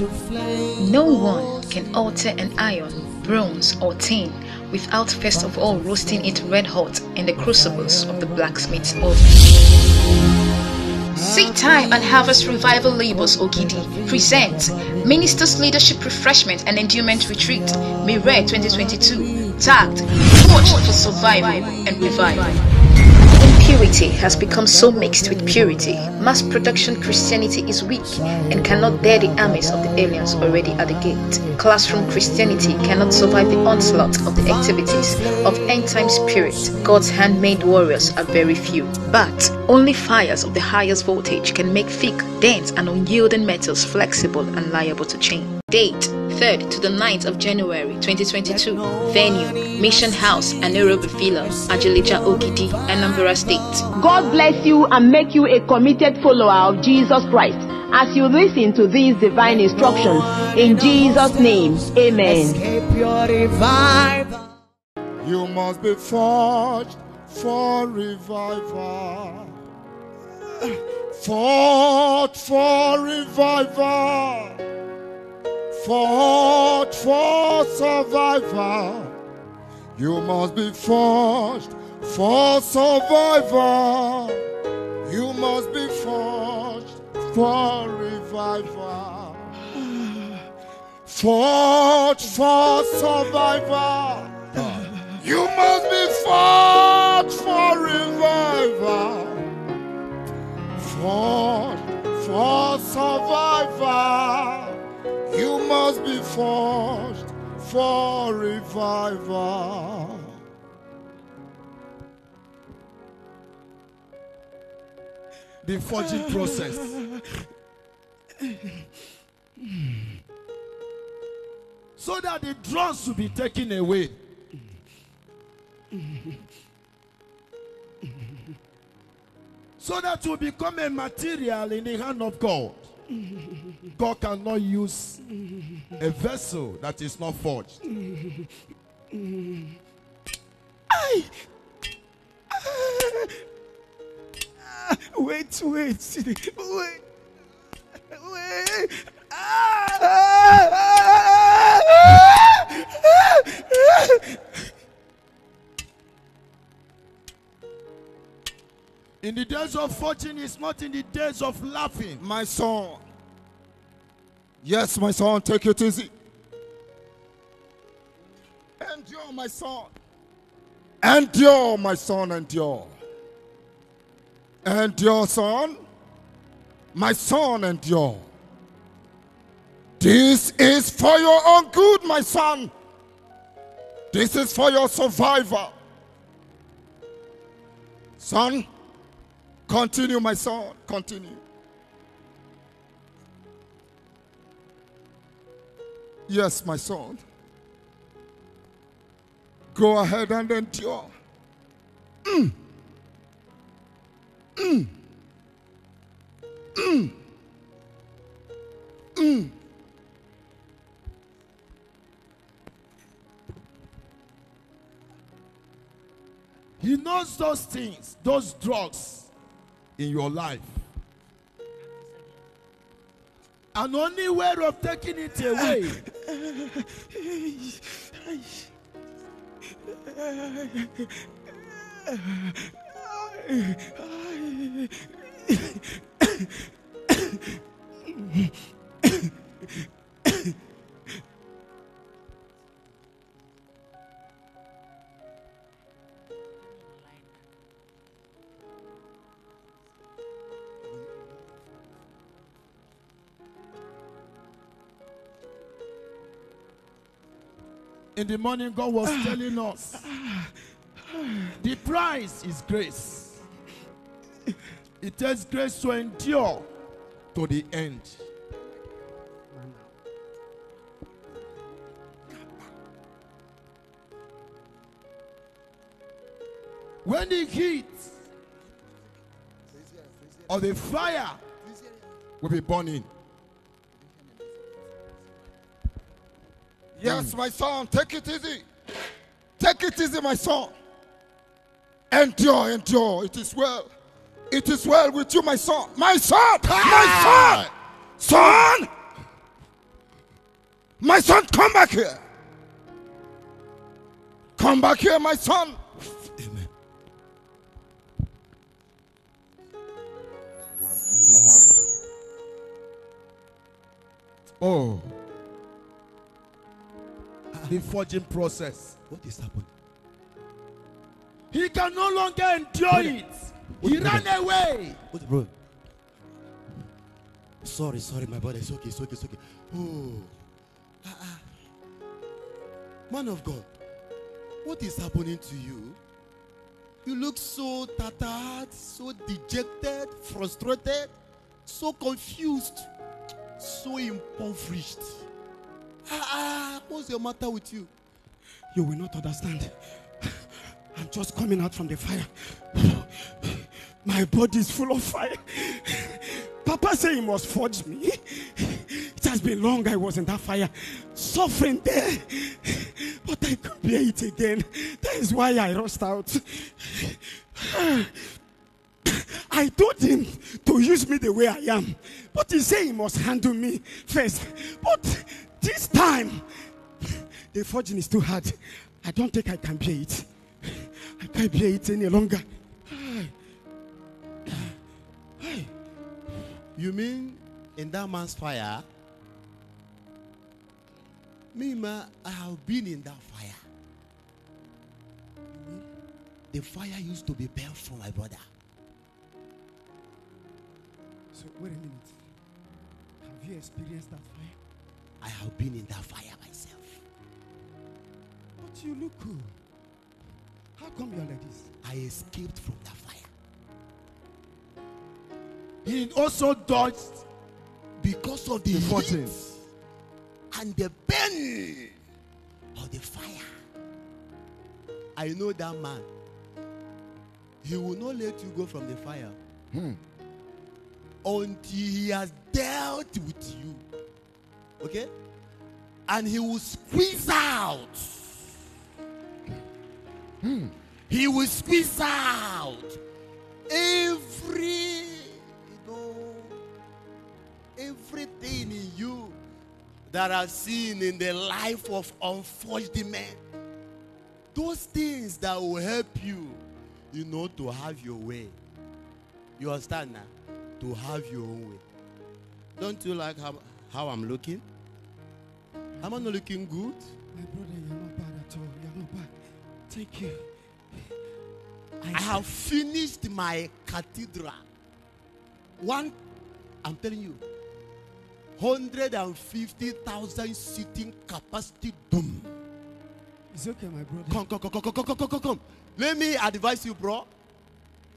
No one can alter an iron, bronze, or tin without first of all roasting it red hot in the crucibles of the blacksmith's oven. Seed Time and Harvest Revival Labels Ogidi presents Minister's Leadership Refreshment and Endowment Retreat, May 2022, tagged Watch for Survival and Revival. Impurity has become so mixed with purity. Mass production Christianity is weak and cannot bear the armies of the aliens already at the gate. Classroom Christianity cannot survive the onslaught of the activities of end time spirit. God's handmade warriors are very few. But only fires of the highest voltage can make thick, dense, and unyielding metals flexible and liable to change. Date 3rd to the 9th of January 2022. Venue, Mission House, Anaerobic Villa, Ajilija Okidi, Anambra State. God bless you and make you a committed follower of Jesus Christ as you listen to these divine instructions. In Jesus' name, amen. You must be forged for revival. Fought for revival forged for survival. You must be forged for survival. You must be forged for revival. Forged for survival. You must be forged for revival. Forged for survival. You must be forged for revival. The forging process. so that the drugs will be taken away. so that you become a material in the hand of God. God cannot use a vessel that is not forged. I, uh, ah! wait, wait, wait, wait. Ah, ah, ah. In the days of fortune is not in the days of laughing. My son. Yes, my son, take it easy. Endure, my son. Endure, my son, endure. Endure, son. My son, endure. This is for your own good, my son. This is for your survival. Son, Continue, my son. Continue. Yes, my son. Go ahead and endure. Mm. Mm. Mm. Mm. He knows those things, those drugs in your life. And only way of taking it away in the morning, God was ah. telling us the price is grace. It takes grace to endure to the end. When the heat or the fire will be burning, Yes, my son, take it easy. Take it easy, my son. Endure, endure. It is well. It is well with you, my son. My son! My son! Son! My son, come back here. Come back here, my son. Amen. Oh the forging process. What is happening? He can no longer endure brother, it. He ran brother? away. What, bro? Sorry, sorry, my brother. It's okay, it's okay, it's okay. Oh. Ah, ah. Man of God, what is happening to you? You look so tattered, so dejected, frustrated, so confused, so impoverished. Ah, ah, what's your matter with you? You will not understand. I'm just coming out from the fire. My body is full of fire. Papa said he must forge me. It has been long I was in that fire, suffering there. But I could bear it again. That is why I rushed out. I told him to use me the way I am. But he said he must handle me first. But this time, the forging is too hard. I don't think I can bear it. I can't bear it any longer. You mean in that man's fire? Me, ma, I have been in that fire. The fire used to be for my brother. So, wait a minute. Have you experienced that fire? I have been in that fire myself. But you look cool. How come you are like this? I escaped from that fire. He also dodged because of the, the heat and the burn of the fire. I know that man. He will not let you go from the fire hmm. until he has dealt with you. Okay? And he will squeeze out. Hmm. He will squeeze out every you know everything in you that I've seen in the life of unfortunate men. Those things that will help you, you know, to have your way. You understand now? To have your own way. Don't you like how how I'm looking? Am I not looking good? My brother, you're not bad at all. You're not bad. Thank you. I, I have finished my cathedral. One, I'm telling you, 150,000 seating capacity Boom. It's okay, my brother. come, come, come, come, come, come, come, come. Let me advise you, bro.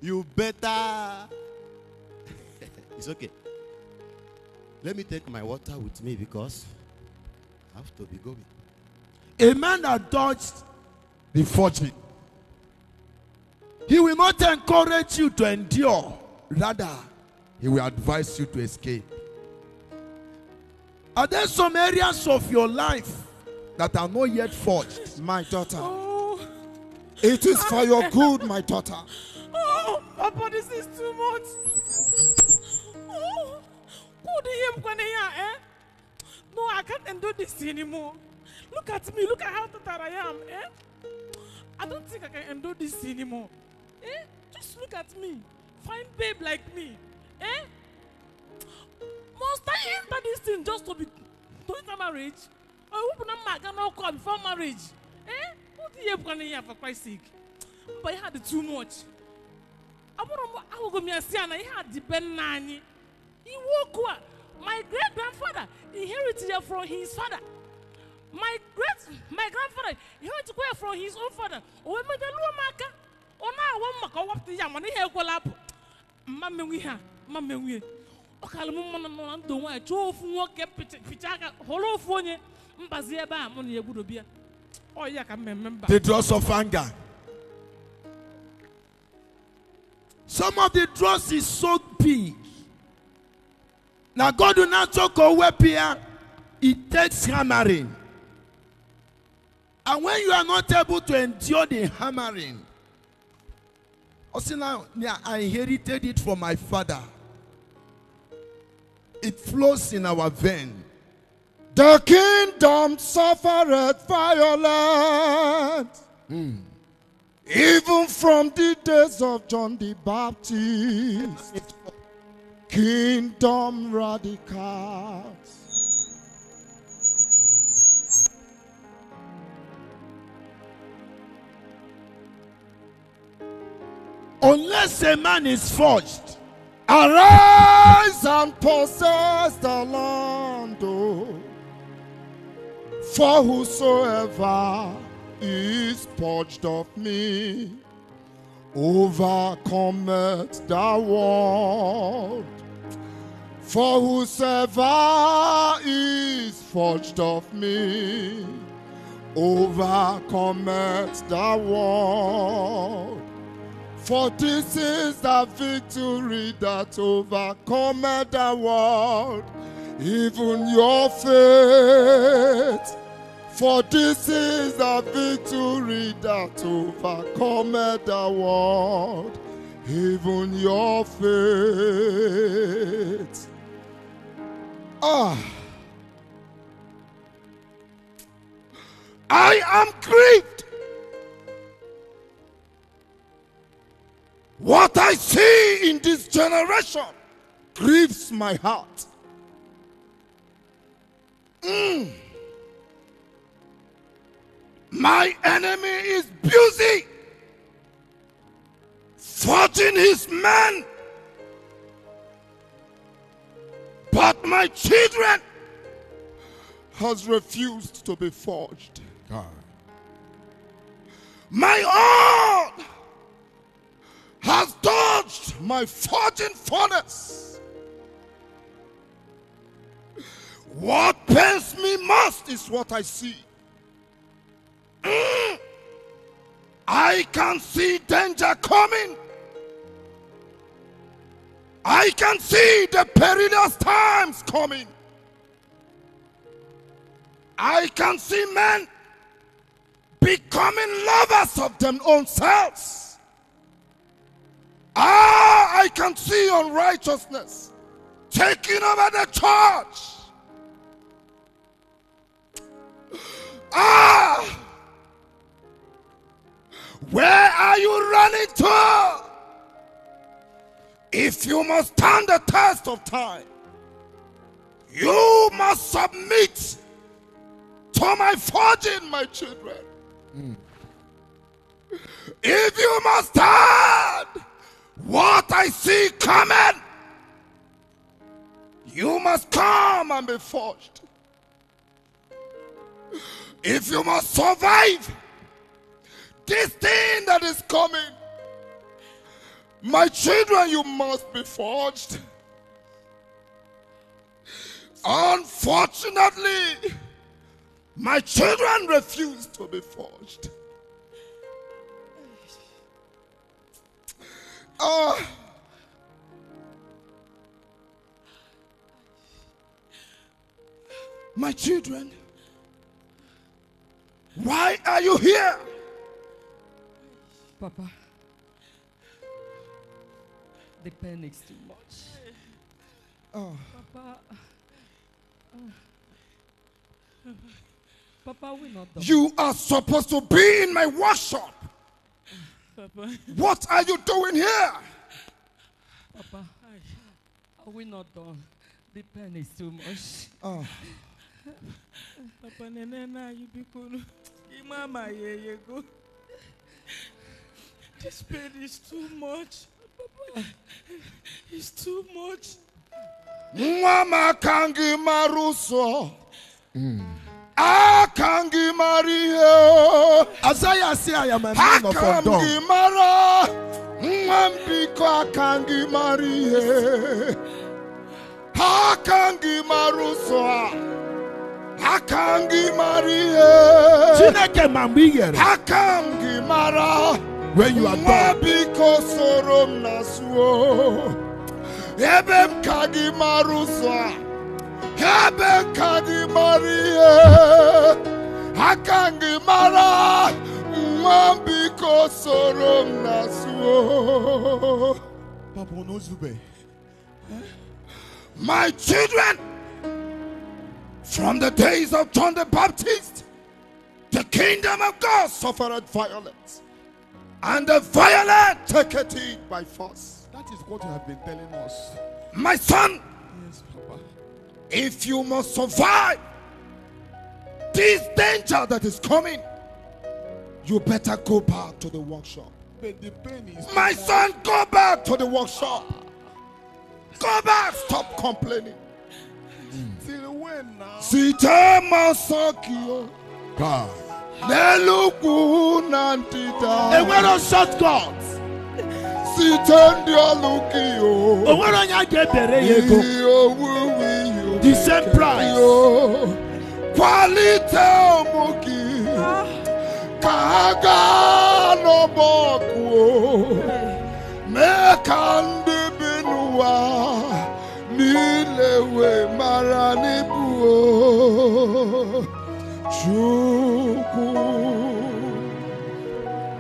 You better. it's okay. Let me take my water with me because I have to be going. A man that dodged the fortune, he will not encourage you to endure, rather, he will advise you to escape. Are there some areas of your life that are not yet forged? My daughter. Oh. It is for your good, my daughter. Oh, Papa, this is too much. Poor DM Kwanaya, eh? No, I can't endure this anymore. Look at me, look at how tired I am, eh? I don't think I can endure this anymore. Eh? Just look at me. Fine babe like me. Eh? Must I enter this thing just to be to enter marriage? Or open up my cannot call before marriage? Eh? What do you have here for Christ's sake? But he had too much. I want to go me and see, and I had the Ben Nani. Iwokua, my great grandfather, inherited from his father. My great my grandfather inherited from his own father. Owe mede luo maka. Ona oh, awon maka wapti ya mani he ekwela apu. Mma menwi ha, mma menwi. Ọkala m mmanụ nọ na ndụ nwaanyị chọọ ofu nwoke picha aka hụrụ ofu onye mbazi ebe a mụ na ya egwurobia ọ ya ka mmemme mba. The dross of anger. Some of the dross is so big. Now god na or ko here. it takes hammering and when you are not able to endure the hammering now. i inherited it from my father it flows in our vein the kingdom suffered violence mm. even from the days of john the baptist Kingdom Radicals. Unless a man is forged, arise and possess the land, for whosoever is purged of me overcometh the world. For whosoever is forged of me overcometh the world. For this is the victory that overcometh the world, even your faith. For this is the victory that overcometh the world, even your faith. Ah. I am grieved. What I see in this generation grieves my heart. Mm. My enemy is busy fighting his men. But my children has refused to be forged. God. My own has dodged my forging furnace. What pains me most is what I see. I can see danger coming. I can see the perilous times coming. I can see men becoming lovers of their own selves. Ah, I can see unrighteousness taking over the church. Ah! Where are you running to? If you must stand the test of time, you must submit to my forging, my children. Mm. If you must stand what I see coming, you must come and be forged. If you must survive this thing that is coming. My children, you must be forged. Unfortunately, my children refuse to be forged. Oh. Uh, my children, why are you here? Papa, the pain is too much. Oh. Papa. Uh, Papa will not die. You are supposed to be in my workshop. Papa. What are you doing here? Papa, are we not done. The pain is too much. Oh. Papa, Nenena, you people. Mama, yeah, yeah, go. This pain is too much. It's too much. Mwama kangi maruso. Mm. Akangi mario. Azaya say I am a man of Odom. Akangi mara. Mwambiko akangi marie. Akangi maruso. Akangi marie. Chineke mambi yere. Akangi mara. Akangi mara. when you are done. kadi mara, kosorom Papa my children, from the days of John the Baptist, the kingdom of God suffered violence and the violent take it by force. That is what you have been telling us. My son, yes, Papa. if you must survive this danger that is coming, you better go back to the workshop. But the pain is My son, go back to the workshop. Go back, stop complaining. Till when now? Sita Masakio. God. Enwero shortcut. Site ndị ọlụ gị o. Onwere onye a ga-ebere ya ego. The same price. Kwalite ụmụ gị ka ha gaa n'ọgbọ ọkụ o. Mee ka ndị bi n'ụwa niile wee mara n'ibu o.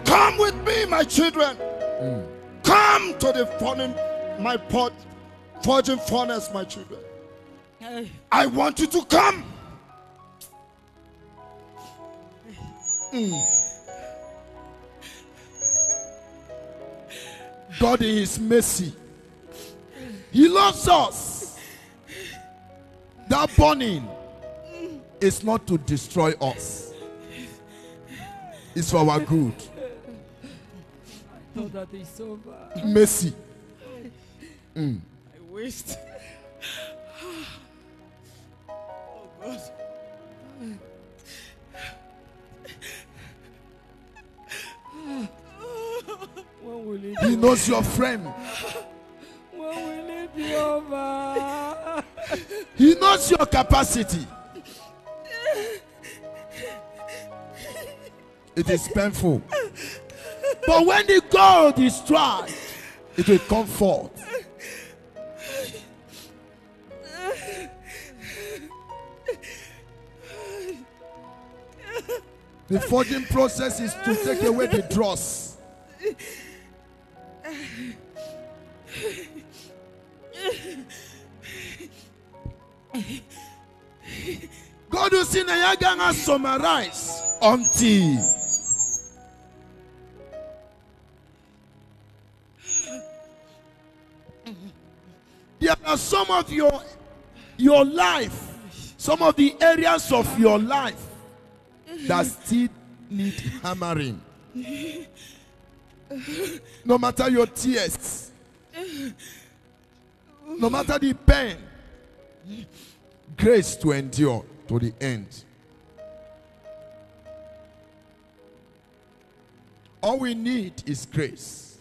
Come with me, my children. Mm. Come to the forging, my pot, forging furnace, my children. Hey. I want you to come. Mm. God is mercy. He loves us. That burning is not to destroy us, it's for our good. I thought that is over. Mercy. Mm. I waste. oh God. When will it he knows your friend. When will it be over? he knows your capacity. It is painful. But when the gold is tried, it will come forth. The forging process is to take away the dross. kodu si na ya agaghị until there are some of your your life some of the areas of your life that still need hammering no matter your tears no matter the pain grace to endure to the end. All we need is grace.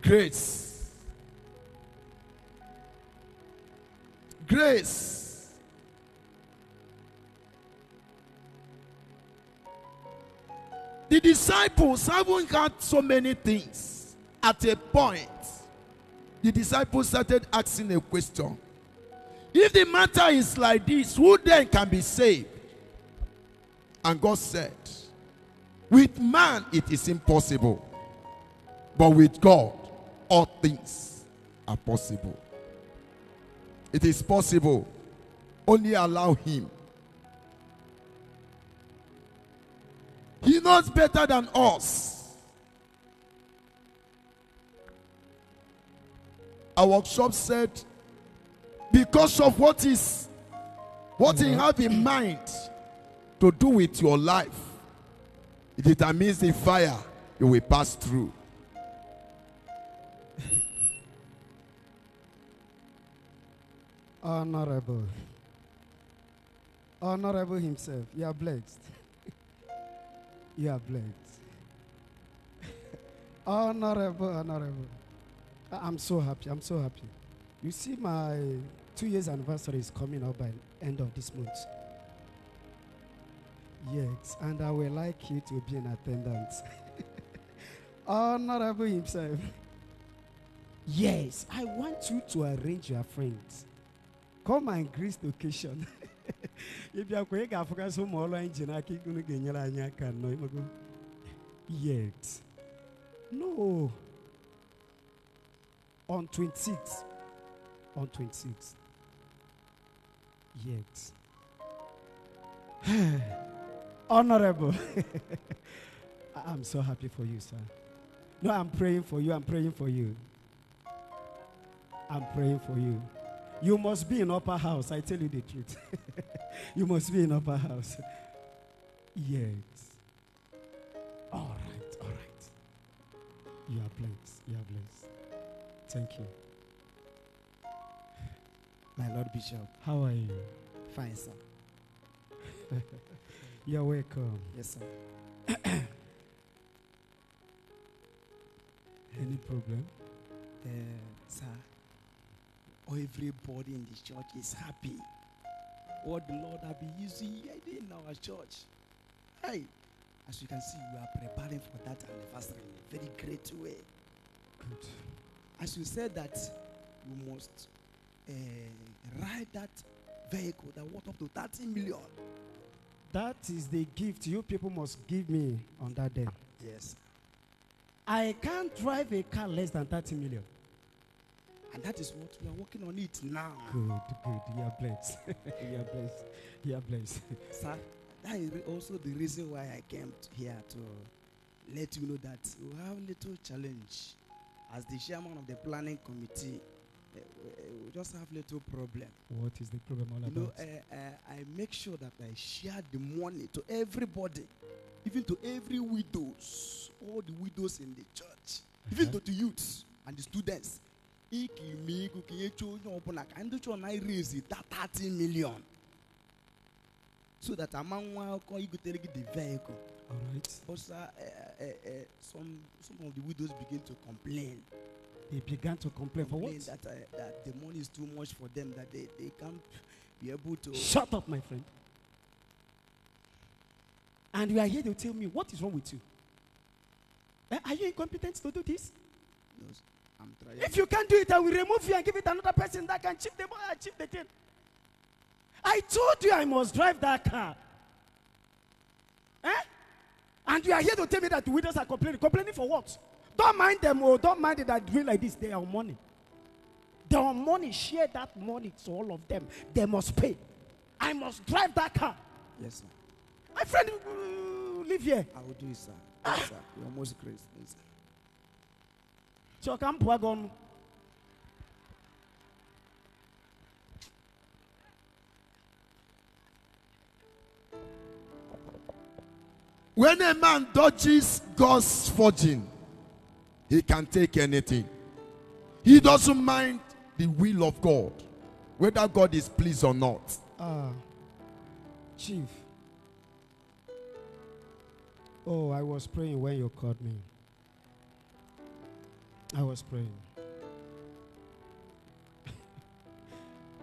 Grace. Grace. The disciples haven't had so many things. At a point, the disciples started asking a question if the matter is like this, who then can be saved? And God said, With man it is impossible, but with God all things are possible. It is possible. Only allow Him. He knows better than us. Our workshop said because of what is what you have in mind to do with your life it determines the fire you will pass through honorable honorable himself you are blessed you are blessed honorable honorable i'm so happy i'm so happy you see my Two years anniversary is coming up by end of this month. Yes, and I would like you to be in attendance. Honorable himself. Yes, I want you to arrange your friends. Come and greet the occasion. If you are going to I keep can no yet. No. On 26th. On 26th yet. Honorable. I'm so happy for you, sir. No, I'm praying for you. I'm praying for you. I'm praying for you. You must be in upper house. I tell you the truth. you must be in upper house. Yes. All right, all right. You are blessed. You are blessed. Thank you. My Lord Bishop. How are you? Fine, sir. You're welcome. Yes, sir. Any problem? Uh, sir, everybody in the church is happy. What oh, the Lord has been using in our church. Hey, as you can see, we are preparing for that anniversary in a very great way. Good. As you said that, you must uh, ride that vehicle that worth up to 30 million. That is the gift you people must give me on that day. Yes. I can't drive a car less than 30 million. And that is what we are working on it now. Good, good. You are blessed. you are blessed. You are blessed. Sir, that is also the reason why I came here to let you know that we have little challenge as the chairman of the planning committee Eh, we just have little problem. What is the problem all about? You know, I, eh, eh, I make sure that I share the money to everybody, even to every widows, all the widows in the church, uh-huh. even to the youths and the students. I raise that 30 million. So that among one the vehicle. All right. But uh, uh, uh, some some of the widows begin to complain. They began to complain, for what? That, uh, that the money is too much for them, that they, they can't be able to. Shut up, my friend. And you are here to tell me what is wrong with you. Eh, are you incompetent to do this? No, I'm trying. If you can't do it, I will remove you and give it another person that can achieve the achieve the thing. I told you I must drive that car. Eh? And you are here to tell me that the widows are complaining. Complaining for what? Don't mind them. Oh, don't mind it that doing like this. They are money. They are money. Share that money to all of them. They must pay. I must drive that car. Yes, sir. My friend, uh, live here. I will do it, sir. Ah. Yes, sir. You're most crazy, sir. So come wagon. When a man dodges God's forging, he can take anything. He doesn't mind the will of God, whether God is pleased or not. Ah, uh, Chief. Oh, I was praying when you called me. I was praying.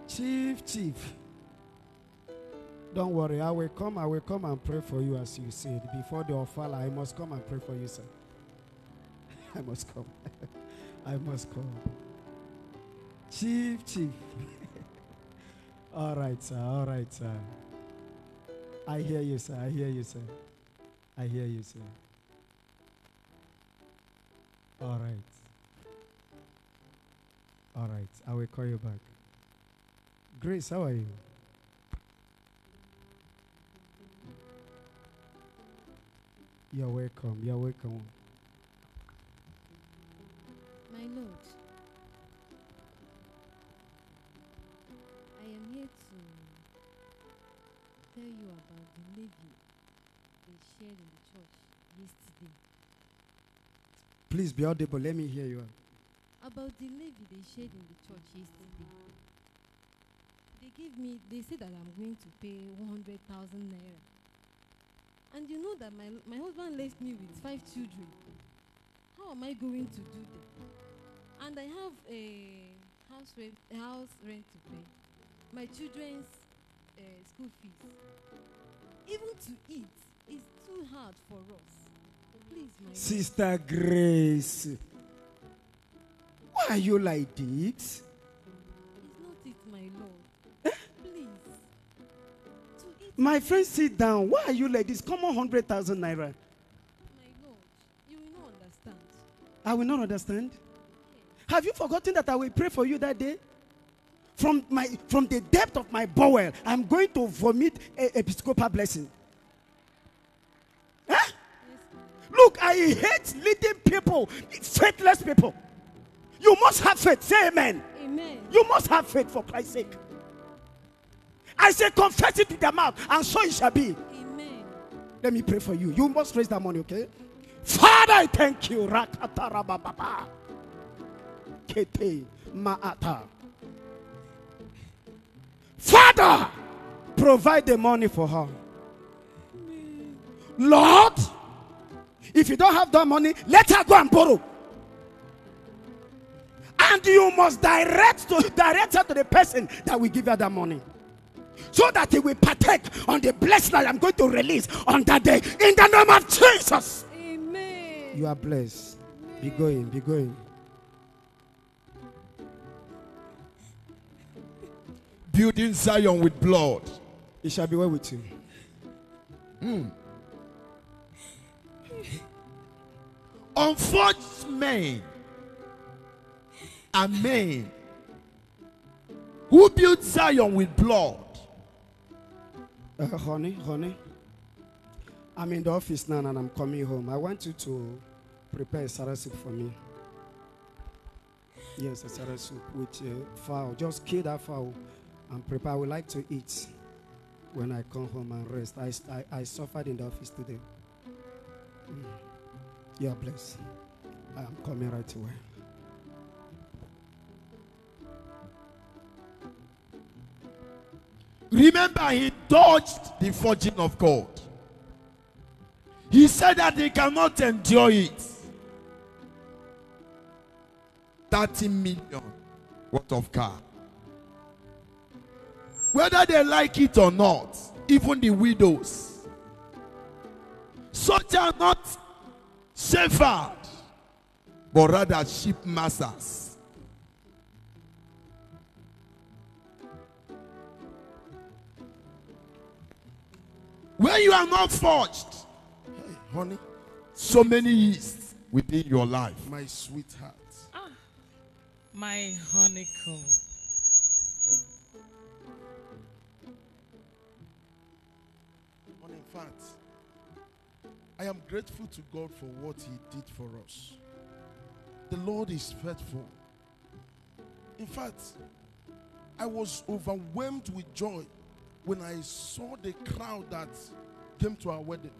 chief, Chief. Don't worry, I will come, I will come and pray for you as you said. Before the offer, I must come and pray for you, sir. I must come. I must come. Chief, chief. all right, sir. All right, sir. I hear you, sir. I hear you, sir. I hear you, sir. All right. All right. I will call you back. Grace, how are you? You're welcome. You're welcome my lord. I am here to tell you about the levy they shared in the church yesterday. Please be audible. Let me hear you. About the levy they shared in the church yesterday. They gave me, they said that I'm going to pay 100,000 naira. And you know that my, my husband left me with five children. How am I going to do that? and I have a house rent, house rent to pay, my children's uh, school fees. Even to eat is too hard for us. Please, my sister Grace. Why are you like this? It's not it, my lord. Eh? Please. To eat my friend, sit down. Why are you like this? Come on, hundred thousand naira. My lord, you will not understand. I will not understand. Have you forgotten that I will pray for you that day? From, my, from the depth of my bowel, I'm going to vomit a episcopal blessing. Huh? Look, I hate leading people, faithless people. You must have faith. Say amen. amen. You must have faith for Christ's sake. I say, confess it with the mouth, and so it shall be. Amen. Let me pray for you. You must raise that money, okay? Father, I thank you. Kete Maata. Father, provide the money for her. Lord, if you don't have that money, let her go and borrow. And you must direct to direct her to the person that will give her that money. So that he will partake on the blessing that I'm going to release on that day. In the name of Jesus. Amen. You are blessed. Amen. Be going, be going. building Zion with blood. It shall be well with you. Mm. Unforged men are men who built Zion with blood. Uh, honey, honey, I'm in the office now and I'm coming home. I want you to prepare a Sarah soup for me. Yes, a Sarah soup with uh, fowl. Just kill that fowl and prepare. I would like to eat when I come home and rest. I, I, I suffered in the office today. Mm. Your place. I'm coming right away. Remember, he dodged the fortune of God. He said that he cannot endure it. 30 million worth of car. Whether they like it or not, even the widows. Such are not shepherds, but rather sheep masters. When you are not forged, hey, honey, so many yeasts within your life. My sweetheart. Ah, my honeycomb. fact, I am grateful to God for what He did for us. The Lord is faithful. In fact, I was overwhelmed with joy when I saw the crowd that came to our wedding.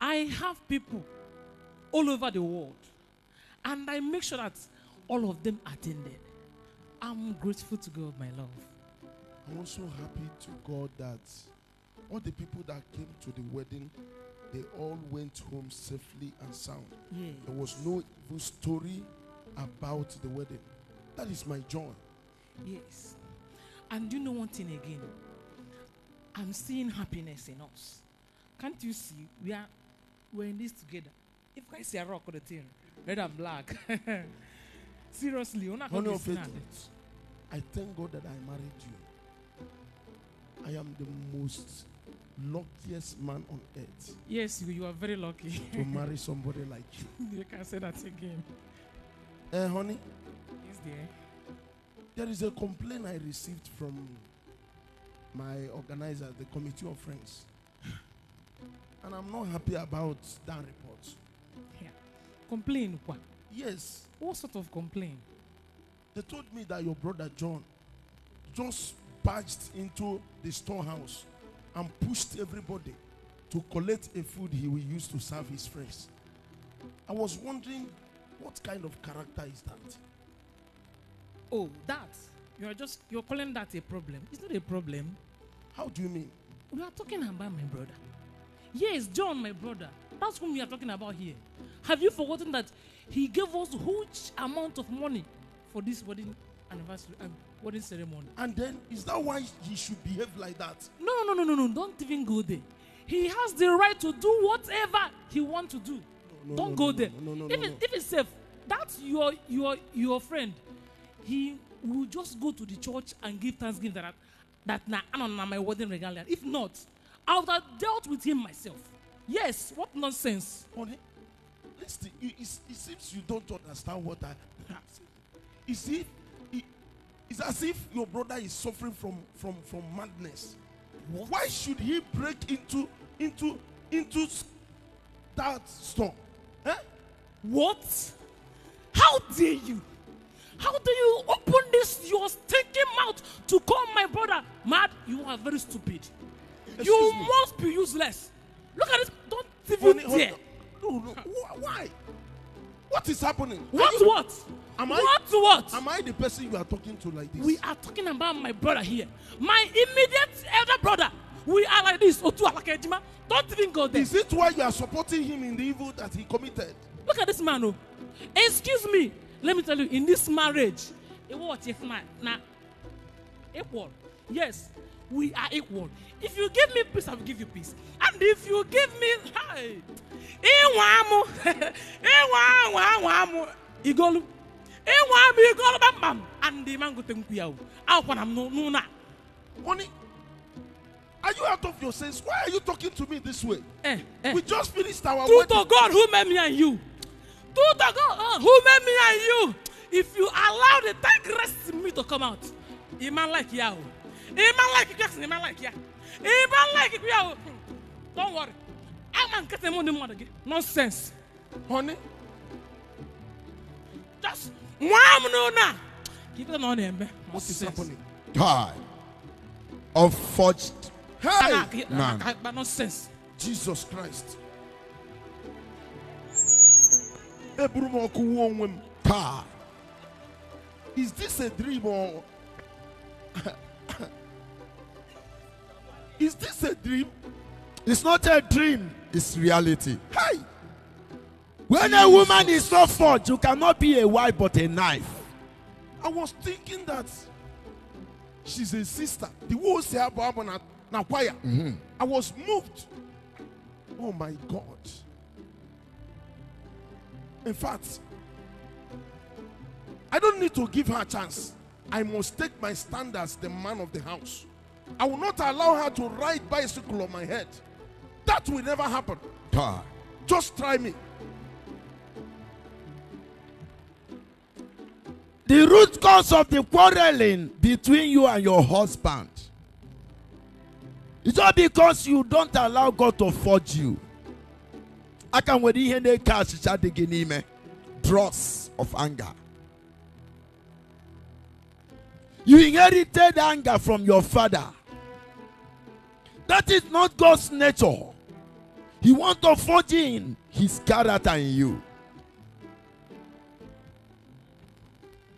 I have people all over the world, and I make sure that all of them attended. I'm grateful to God, my love. I'm also happy to God that all the people that came to the wedding, they all went home safely and sound. Yes. There was no evil story about the wedding. That is my joy. Yes. And you know one thing again? I'm seeing happiness in us. Can't you see? We are we're in this together. If I see a rock on the thing, red and black. Seriously, Honey are not I thank God that I married you. I am the most luckiest man on earth. Yes, you, you are very lucky. to marry somebody like you. you can say that again. Eh, uh, honey? Yes, dear. There is a complaint I received from my organizer, the Committee of Friends. and I'm not happy about that report. Yeah. Complain what? Yes. What sort of complaint? They told me that your brother John just barged into the storehouse and pushed everybody to collect a food he will use to serve his friends. I was wondering what kind of character is that? Oh, that. You're just you're calling that a problem. It's not a problem. How do you mean? We are talking about my brother. Yes, John, my brother. That's whom we are talking about here. Have you forgotten that he gave us huge amount of money for this wedding anniversary and um, wedding ceremony. And then is that why he should behave like that? No, no, no, no, no. Don't even go there. He has the right to do whatever he wants to do. No, Don't no, go no, there. No, no, no, if, no, if it's safe, that's your your your friend. He will just go to the church and give thanksgiving that that now nah, I'm on my wedding regalia. If not, I would have dealt with him myself. Yes, what nonsense. It, it, it seems you don't understand what I have Is it? it it's as if your brother is suffering from from from madness. What? Why should he break into into into that storm? Eh? What? How dare you? How do you open this your stinking mouth to call my brother mad? You are very stupid. Excuse you me. must be useless. Look at this. Don't even honey, dare. Honey, No, no. Why? What is happening? What? You, what? Am I, what? What? Am I the person you are talking to like this? We are talking about my brother here. My immediate elder brother. We are like this. Otu Alakejima. Don't even go there. Is it why you are supporting him in the evil that he committed? Look at this man. Oh. Excuse me. Let me tell you, in this marriage, it was if man. Now, equal. Yes we are equal. If you give me peace, I will give you peace. And if you give me, hey, iwamu, iwamu, iwamu, igolu, iwamu, igolu, bam bam, and the man go to nkuyau. How can I no no na? Oni, are you out of your sense? Why are you talking to me this way? Eh, eh. We just finished our. True wedding. to God who made me and you. True to God uh, who made me and you. If you allow the tigress in me to come out, a man like Yahoo. ịma like Jackson ịma like ya ịma laik we o don't worry i ama get m ndị mmadụ again. nonsense honey just nwa m n'ụlọ a ka ikpe na ọ na-eme unforged hey man nonsense Jesus Christ is this a dream or Is this a dream? It's not a dream, it's reality. Hey! When a woman is so forged, you cannot be a wife but a knife. I was thinking that she's a sister. The whole Seababa na choir. Mm-hmm. I was moved. Oh my God. In fact, I don't need to give her a chance. I must take my stand as the man of the house. I will not allow her to ride bicycle on my head. That will never happen. God. Just try me. The root cause of the quarreling between you and your husband is all because you don't allow God to forge you. I can wait in the cash me dross of anger. You inherited anger from your father. That is not God's nature. He wants to forge in his character in you.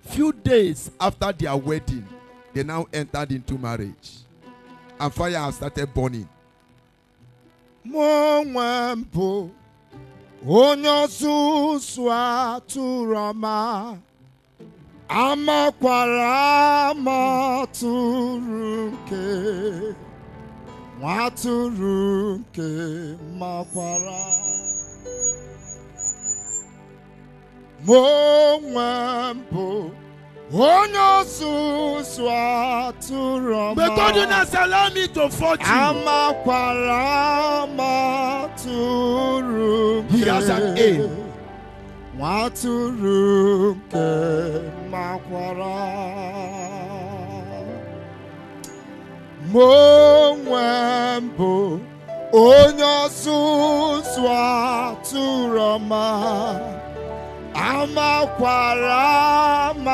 Few days after their wedding, they now entered into marriage. And fire has started burning. Mo nwe mbụ onye amakwara ama tụrụ nwatụrụ nke makwara mụ onwe m bụ onye ọzụzụ atụrụ ọma to fortune amakwara amatụrụ nke he has an aim nwatụrụ nke makwara mụ onwe m bụ onye ọzụzụ atụrụ ọma amakwara m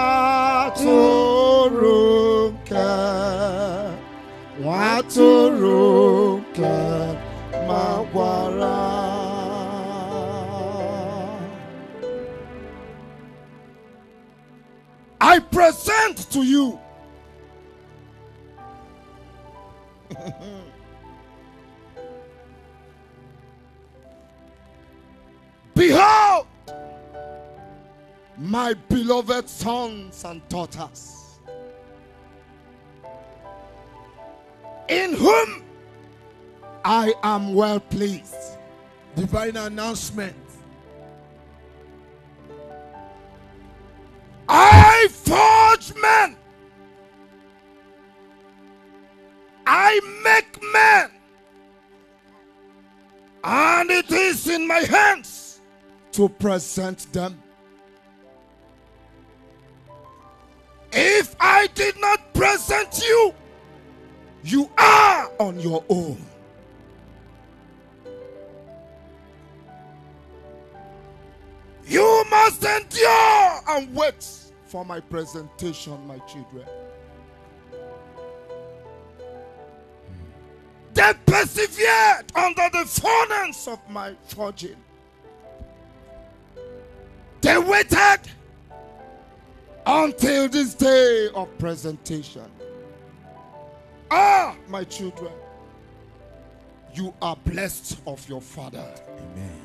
nke nwa nke makwara I present to you Behold, my beloved sons and daughters, in whom I am well pleased. Divine announcement it is in my hands to present them. If I did not present you, you are on your own. You must endure and wait for my presentation, my children. they persevered under the furnace of my forging. They waited until this day of presentation. Ah, my children, you are blessed of your Father. Amen.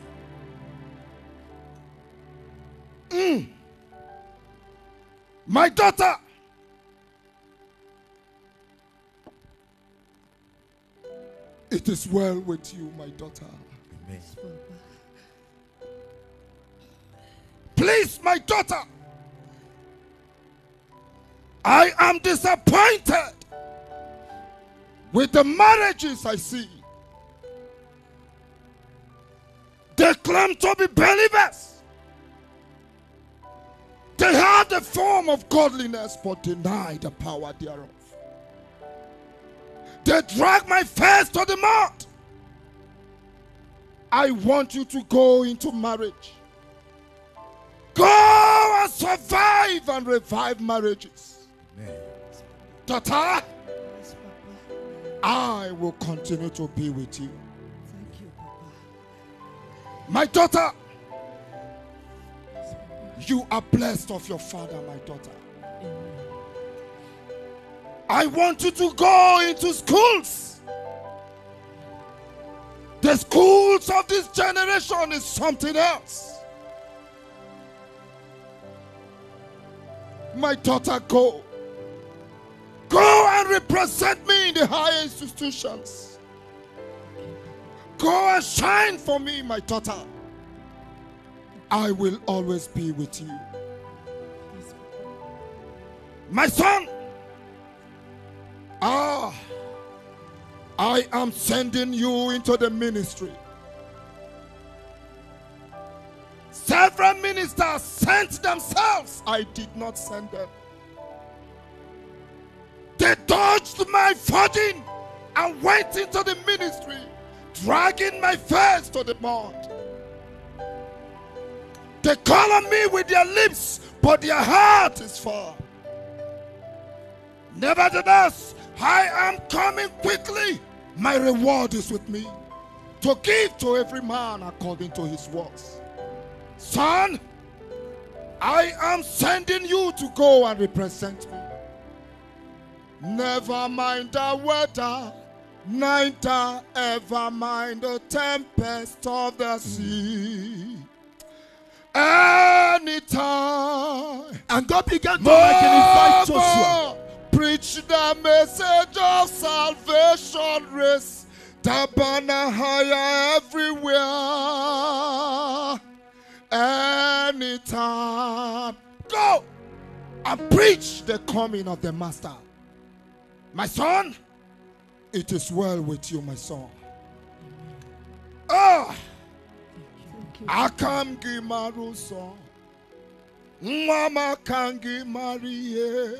Mm. My daughter, It is well with you, my daughter. Amen. Please, my daughter, I am disappointed with the marriages I see. They claim to be believers. They have the form of godliness but deny the power thereof. They drag my face to the mud. I want you to go into marriage. Go and survive and revive marriages. Amen. Daughter, I will continue to be with you. Thank you, Papa. My daughter, you are blessed of your father, my daughter. Amen. I want you to go into schools. The schools of this generation is something else. My daughter, go. Go and represent me in the higher institutions. Go and shine for me, my daughter. I will always be with you. My son, Ah, I am sending you into the ministry. Several ministers sent themselves. I did not send them. They dodged my footing and went into the ministry, dragging my face to the mud. They call on me with their lips, but their heart is far. Nevertheless, I am coming quickly. My reward is with me to give to every man according to his works. Son, I am sending you to go and represent me. Never mind the weather, neither ever mind the tempest of the sea. Anytime. And God began to magnify Joshua preach the message of salvation, raise the banner higher everywhere, anytime. Go and preach the coming of the Master. My son, it is well with you, my son. Ah, Akam Gimaru son. Mama Kangi Marie.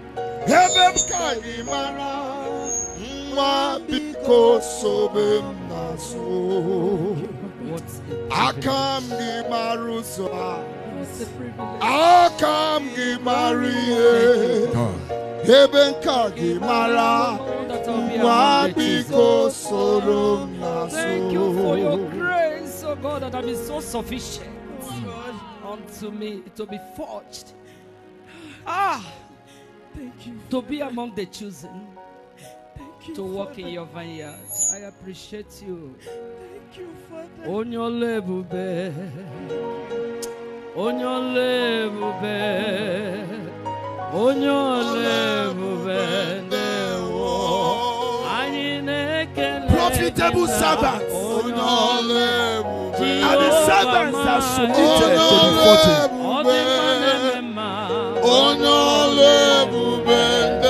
ebe m ka gị mara nwa biko sobe m n'azụ aka m unto me to be forged. Ah! You, to be among the chosen. You, to walk in your vineyard. I appreciate you. you On your level, bear. On your level, bear. On your level, bear. Profitable servants. And the servants are submitted to the 14 onye ọlụ ebube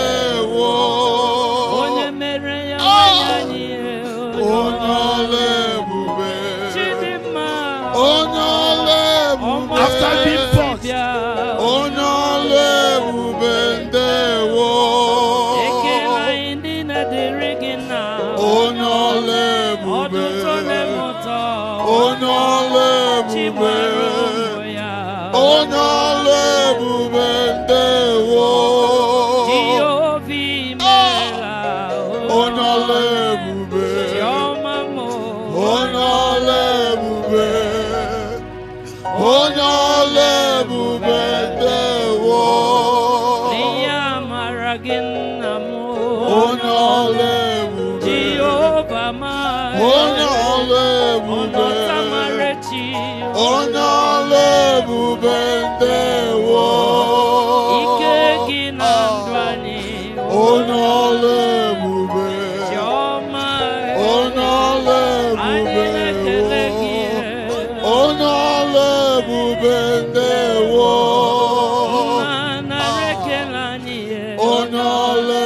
onye ọla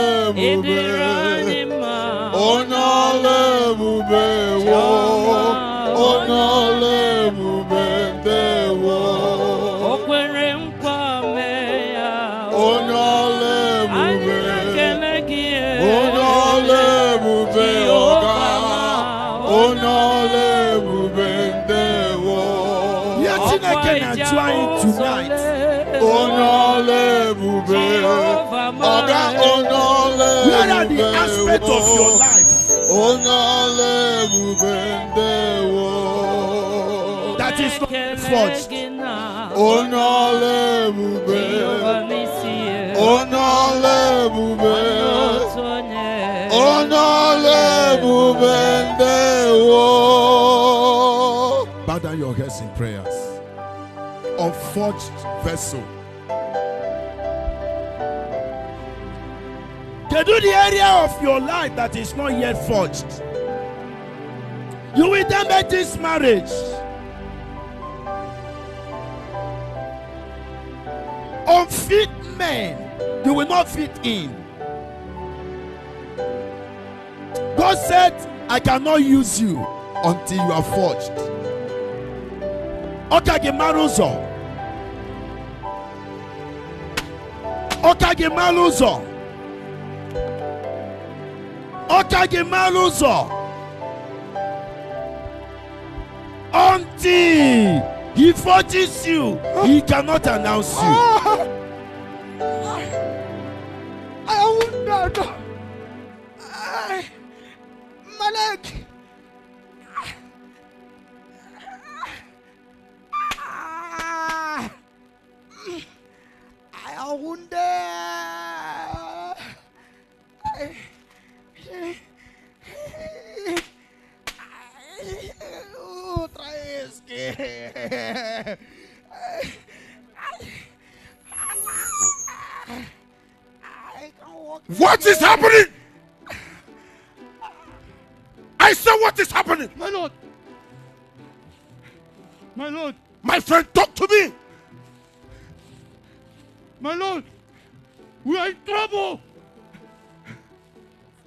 ebube Where are the aspects of your life that is not forged? Bow down your heads in prayers. Unforged vessel. They do the area of your life that is not yet forged. You will then make this marriage. Unfit men, you will not fit in. God said, I cannot use you until you are forged. Okage Maruzo. Okage Maruzo ọka gị mara ụzọ until he forces you he cannot announce you. I won't know. I, Malek. Otra vez que... What is happening? I said, What is happening? My lord. My lord. My friend, talk to me. My lord. We are in trouble.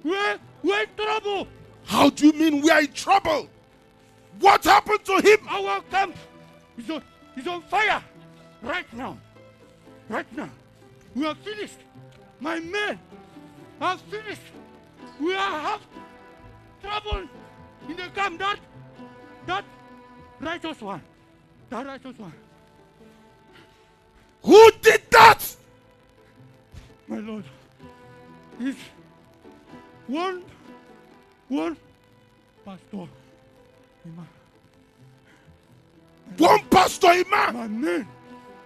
We're, we're in trouble. How do you mean we are in trouble? What happened to him? Our camp is on, is on fire right now. Right now. We are finished. My men are finished. We are have trouble in the camp. That, that righteous one. That righteous one. Who did that? My Lord. It's one, one pastor Ima. One pastor Ima. My name,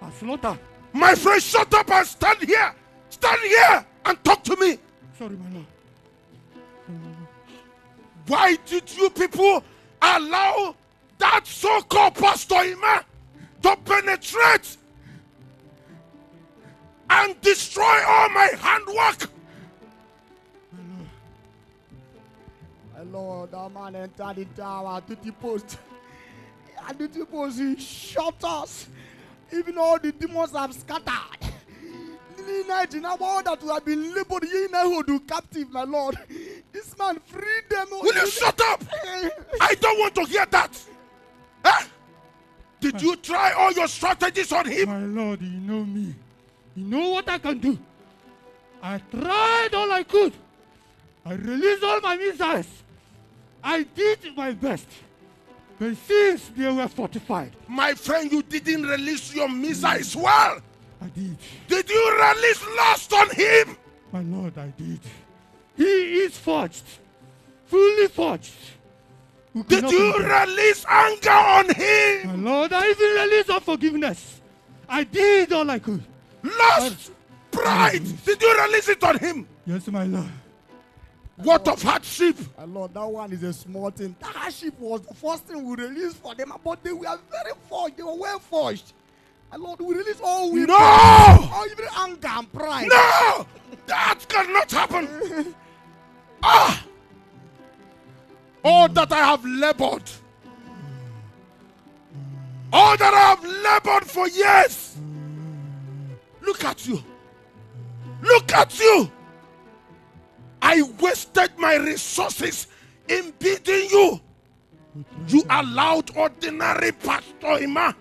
Aslota. My friend, shut up and stand here. Stand here and talk to me. Sorry, my lord. Why did you people allow that so-called pastor Ima to penetrate and destroy all my handwork? Lord, that man entered the tower, duty post. And the post, he shot us. Even all the demons have scattered. Imagine all that have been labeled do captive, my Lord. This man freed them. Will you shut up? I don't want to hear that. Huh? Eh? Did you try all your strategies on him? My Lord, you know me. You know what I can do. I tried all I could. I released all my missiles. I did my best. But since they were fortified. My friend, you didn't release your missiles well. I did. Did you release lust on him? My lord, I did. He is forged. Fully forged. did you release anger on him? My lord, I even released unforgiveness. I did all I could. Lust, pride. did you release it on him? Yes, my lord. What of hardship? And Lord, that one is a small thing. That hardship was the first thing we released for them, but they were very forged. They were well forged. And Lord, we release all we No! All even anger and pride. No! That cannot happen. ah! All that I have labored. All that I have labored for years. Look at you. Look at you. I wasted my resources in beating you. You allowed ordinary Pastor Ima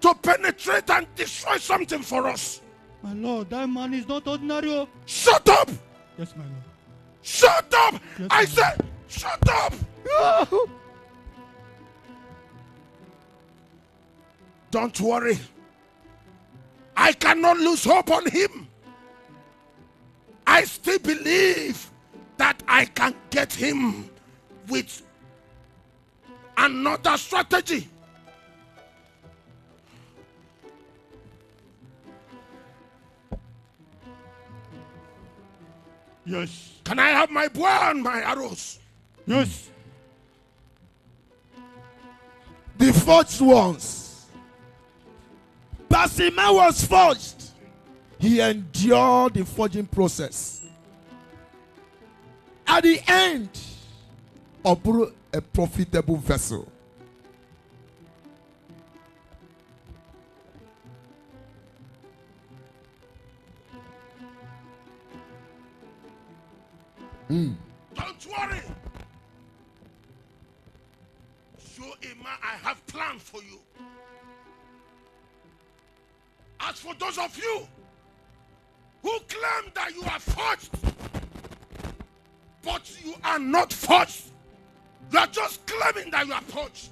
to penetrate and destroy something for us. My Lord, that man is not ordinary. Oh. Shut up! Yes, my Lord. Shut up! Yes, I said, shut up! Don't worry. I cannot lose hope on him. I still believe that I can get him with another strategy. Yes. Can I have my bow and my arrows? Yes. The forged ones. Basima was forged. He endured the forging process. At the end, Obru a profitable vessel. Mm. Don't worry. Shoema, I have plans for you. As for those of you who claim that you are forged, but you are not forged. You are just claiming that you are forged.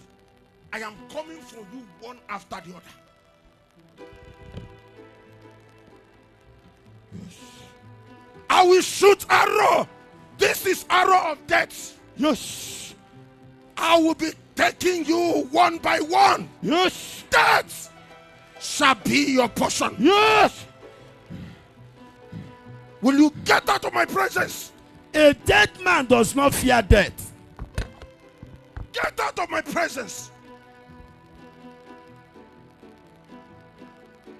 I am coming for you one after the other. Yes. I will shoot arrow. This is arrow of death. Yes. I will be taking you one by one. Yes. Death shall be your portion. Yes. Will you get out of my presence? A dead man does not fear death. Get out of my presence.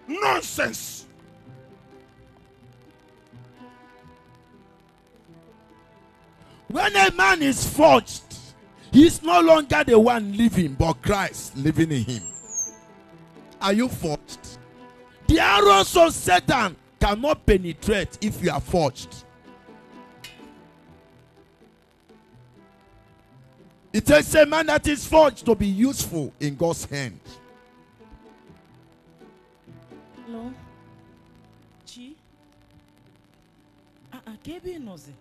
Nonsense. When a man is forged, he is no longer the one living, but Christ living in him. Are you forged? The arrows of Satan cannot penetrate if you are forged. It a man that is forged to be useful in God's hand. No. Chi? Ah, ah KB Nozi.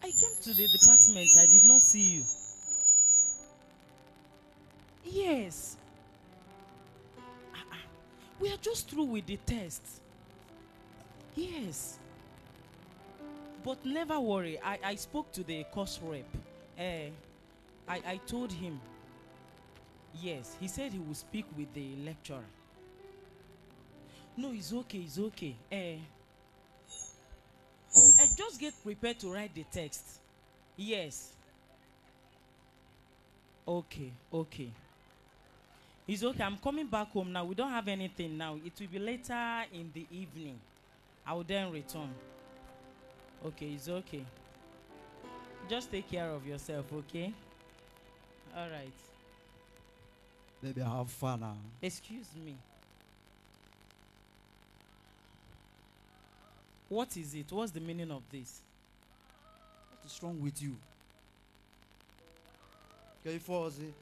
I came to the department, I did not see you. Yes, we are just through with the test. Yes. But never worry. I, I spoke to the course rep. Uh, I, I told him. Yes, he said he will speak with the lecturer. No, it's okay, it's okay. Uh, eh. I eh, just get prepared to write the text. Yes. Okay, okay. It's okay. I'm coming back home now. We don't have anything now. It will be later in the evening. I will then return. Okay, it's okay. Just take care of yourself, okay? All right. Baby, have fun now. Excuse me. What is it? What's the meaning of this? What is wrong with you? Can you fall asleep?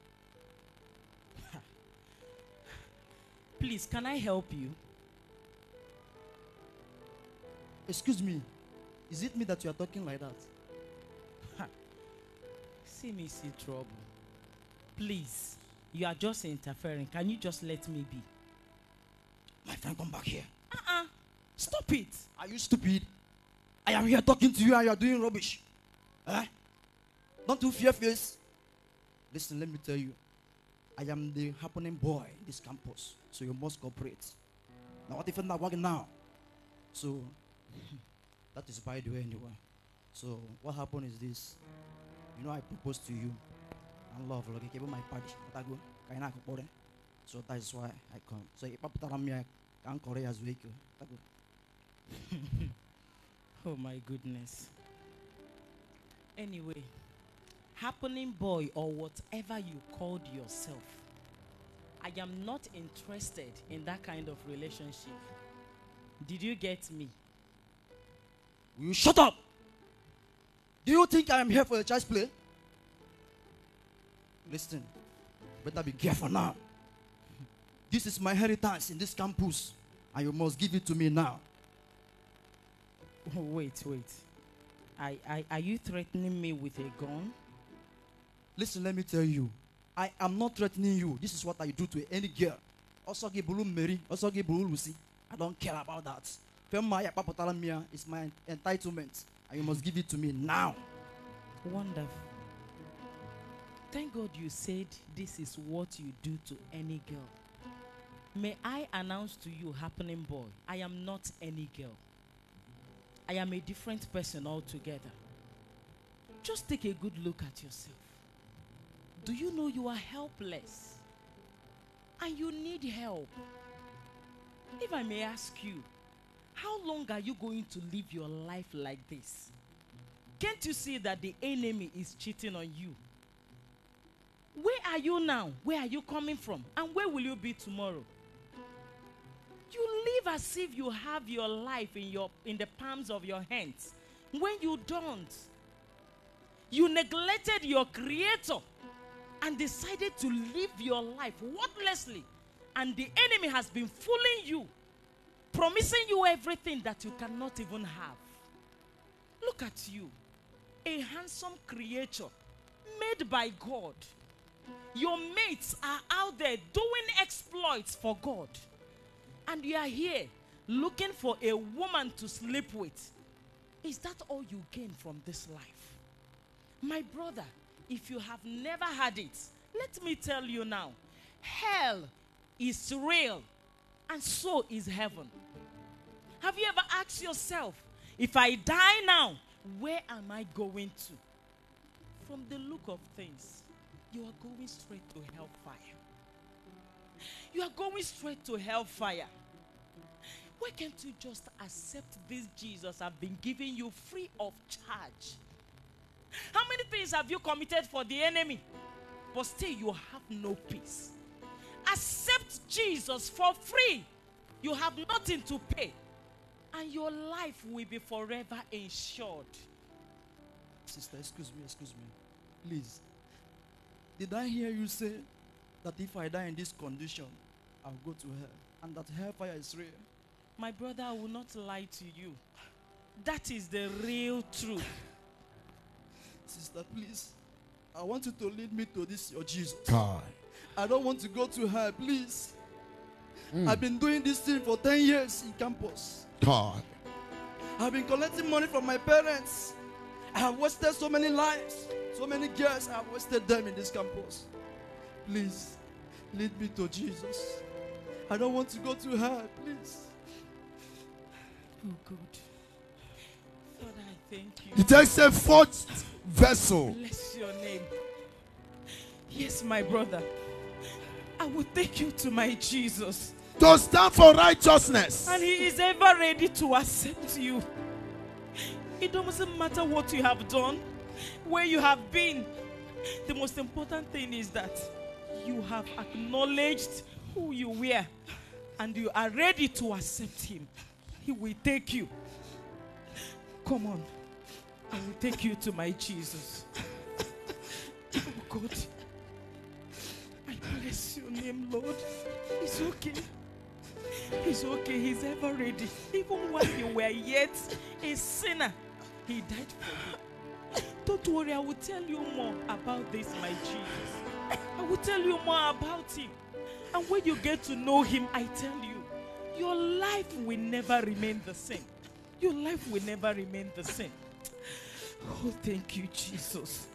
Please, can I help you? Excuse me. Is it me that you are talking like that? See me see trouble. Please, you are just interfering. Can you just let me be? My friend, come back here. Uh-uh. Stop it. Are you stupid? I am here talking to you and you are doing rubbish. Eh? Don't you fear face? Listen, let me tell you. I am the happening boy in this campus, so you must cooperate. Now, what if I'm not working now? So, that is by the way, anyway. So, what happened is this. You know, I proposed to you. And love, like, I gave my party. So, that is why I come. So, if I'm here, I'm Korea as well. Oh, my goodness. Anyway happening boy or whatever you called yourself. I am not interested in that kind of relationship. Did you get me? Will you shut up? Do you think I am here for a church play? Listen, better be careful now. This is my heritage in this campus, and you must give it to me now. wait, wait. I, I, are you threatening me with a gun? Listen, let me tell you. I am not threatening you. This is what I do to any girl. Also give bulu Mary. Also give Lucy. I don't care about that. Femaya papotalamia is my entitlement. And you must give it to me now. Wonderful. Thank God you said this is what you do to any girl. May I announce to you, happening boy, I am not any girl. I am a different person altogether. Just take a good look at yourself. Do you know you are helpless? And you need help. If I may ask you, how long are you going to live your life like this? Can't you see that the enemy is cheating on you? Where are you now? Where are you coming from? And where will you be tomorrow? You live as if you have your life in, your, in the palms of your hands when you don't. You neglected your creator and decided to live your life worthlessly, and the enemy has been fooling you, promising you everything that you cannot even have. Look at you, a handsome creature made by God. Your mates are out there doing exploits for God, and you are here looking for a woman to sleep with. Is that all you gain from this life? My brother, if you have never had it, let me tell you now hell is real, and so is heaven. Have you ever asked yourself, if I die now, where am I going to? From the look of things, you are going straight to hellfire. You are going straight to hellfire. Why can't you just accept this Jesus I've been giving you free of charge? How many things have you committed for the enemy? But still, you have no peace. Accept Jesus for free. You have nothing to pay. And your life will be forever insured. Sister, excuse me, excuse me. Please. Did I hear you say that if I die in this condition, I'll go to hell and that hellfire is real? My brother, I will not lie to you. That is the real truth. Sister, please. I want you to lead me to this, your Jesus. God. I don't want to go to hell, please. Mm. I've been doing this thing for 10 years in campus. God. I've been collecting money from my parents. I have wasted so many lives, so many girls. I have wasted them in this campus. Please, lead me to Jesus. I don't want to go to hell, please. Oh, God. He takes a fourth vessel. Bless your name. Yes, my brother. I will take you to my Jesus. To stand for righteousness. And he is ever ready to accept you. It doesn't matter what you have done, where you have been. The most important thing is that you have acknowledged who you were and you are ready to accept him. He will take you. Come on. I will take you to my Jesus. Oh God, I bless your name, Lord. It's okay. He's okay. He's ever ready. Even while you were yet a sinner, He died for you. Don't worry, I will tell you more about this, my Jesus. I will tell you more about Him. And when you get to know Him, I tell you, your life will never remain the same. Your life will never remain the same. Oh, thank you, Jesus.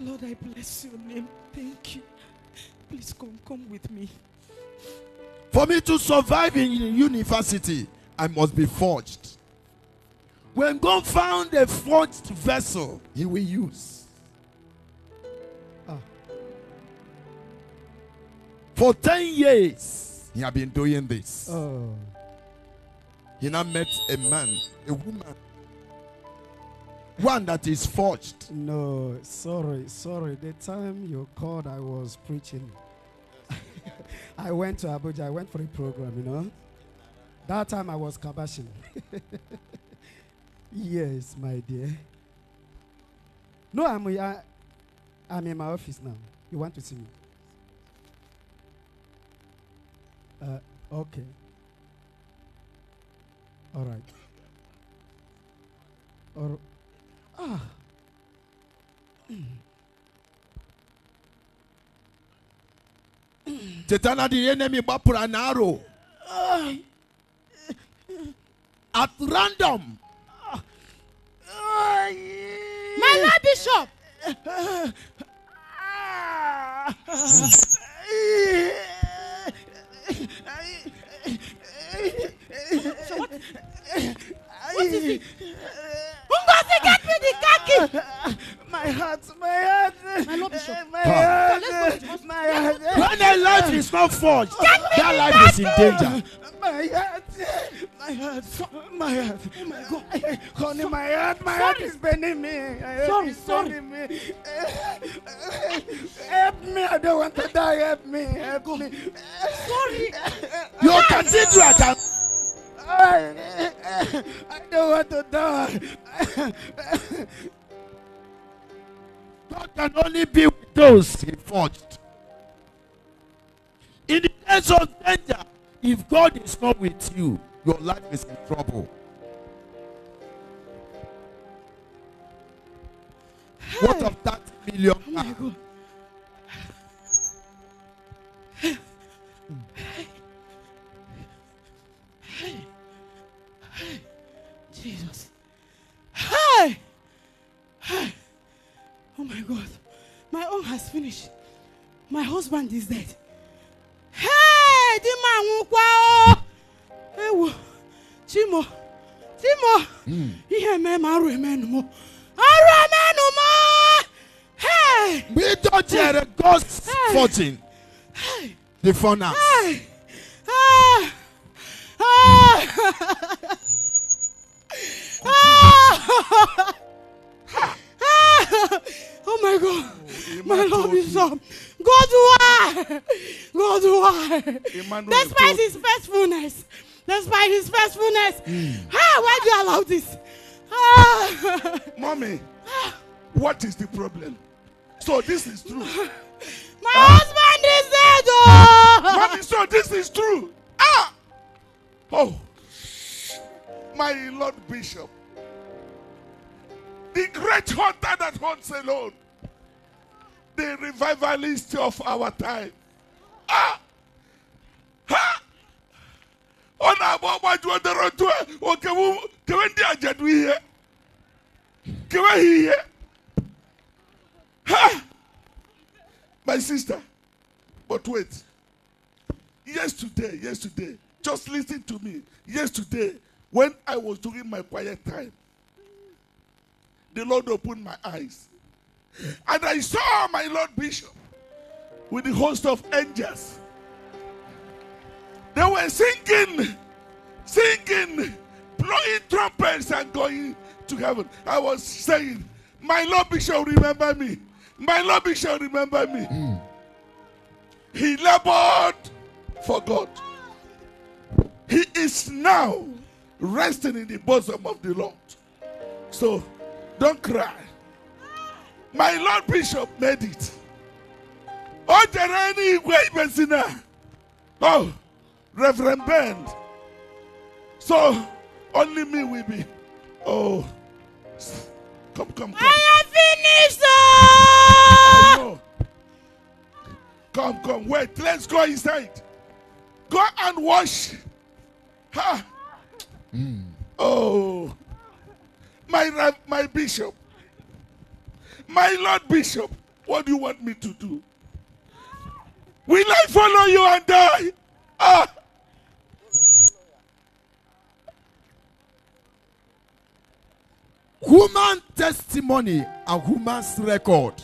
Lord, I bless your name. Thank you. Please come, come with me. For me to survive in university, I must be forged. When God found a forged vessel, he will use. Ah. For 10 years, he has been doing this. Oh he now met a man, a woman, one that is forged. No, sorry, sorry. The time you called, I was preaching. I went to Abuja. I went for a program, you know. That time I was kabashing. yes, my dear. No, I'm, I, am i am in my office now. You want to see me? Uh, okay. All right. Or ah. Tetana the enemy bapura an arrow. At random. My Lord Bishop. Hmm. what? What is it? get me the khaki! My heart, my heart. My Lord Bishop. My heart. My heart. When a life is not forged, that life is in danger. My heart. My heart. My heart. Oh my God. Honey, my heart. My heart is bending me. Sorry, sorry. Me. Help me. I don't want to die. Help me. Help me. Sorry. Your cathedral can. I don't want to die. God can only be with those he forged. In the case of danger, if God is not with you, your life is in trouble. Hey. What of that million? Oh Jesus. Hi! Hi! Oh my God. My own has finished. My husband is dead. Hey! Di ma nwụkwa o! Ewo! Chimo! Chimo! Hmm. Ihe mee ma arụ emenu mụ. Arụ emenu mụ! Hey! We don't hear God's hey. fortune. Hey! The furnace. Hey! Ah! Ah! Ah! oh my God. Oh, my love is up. God, why? God, why? Despite his faithfulness. Despite his faithfulness. Mm. Ah, why do you allow this? Ah. Mommy, ah. what is the problem? So this is true. My ah. husband is dead. Oh. Mommy, so this is true. Ah. Oh my Lord Bishop, the great hunter that hunts alone, the revivalist of our time. Ah! Ha! Ah! Oh, ha ah! my sister but wait yesterday yesterday just listen to me yesterday when I was doing my quiet time, the Lord opened my eyes. And I saw my Lord Bishop with the host of angels. They were singing, singing, blowing trumpets and going to heaven. I was saying, My Lord Bishop, remember me. My Lord Bishop, remember me. Mm. He labored for God. He is now resting in the bosom of the Lord. So don't cry. My Lord Bishop made it. there any way, ibezina. Oh, Reverend Bend. So only me will be. Oh, come, come, come. I have finished. Oh, come, come, wait. Let's go inside. Go and wash. Ha. Mm. Oh, my, my bishop, my Lord Bishop, what do you want me to do? Will I follow you and die? Ah. Human testimony and human's record.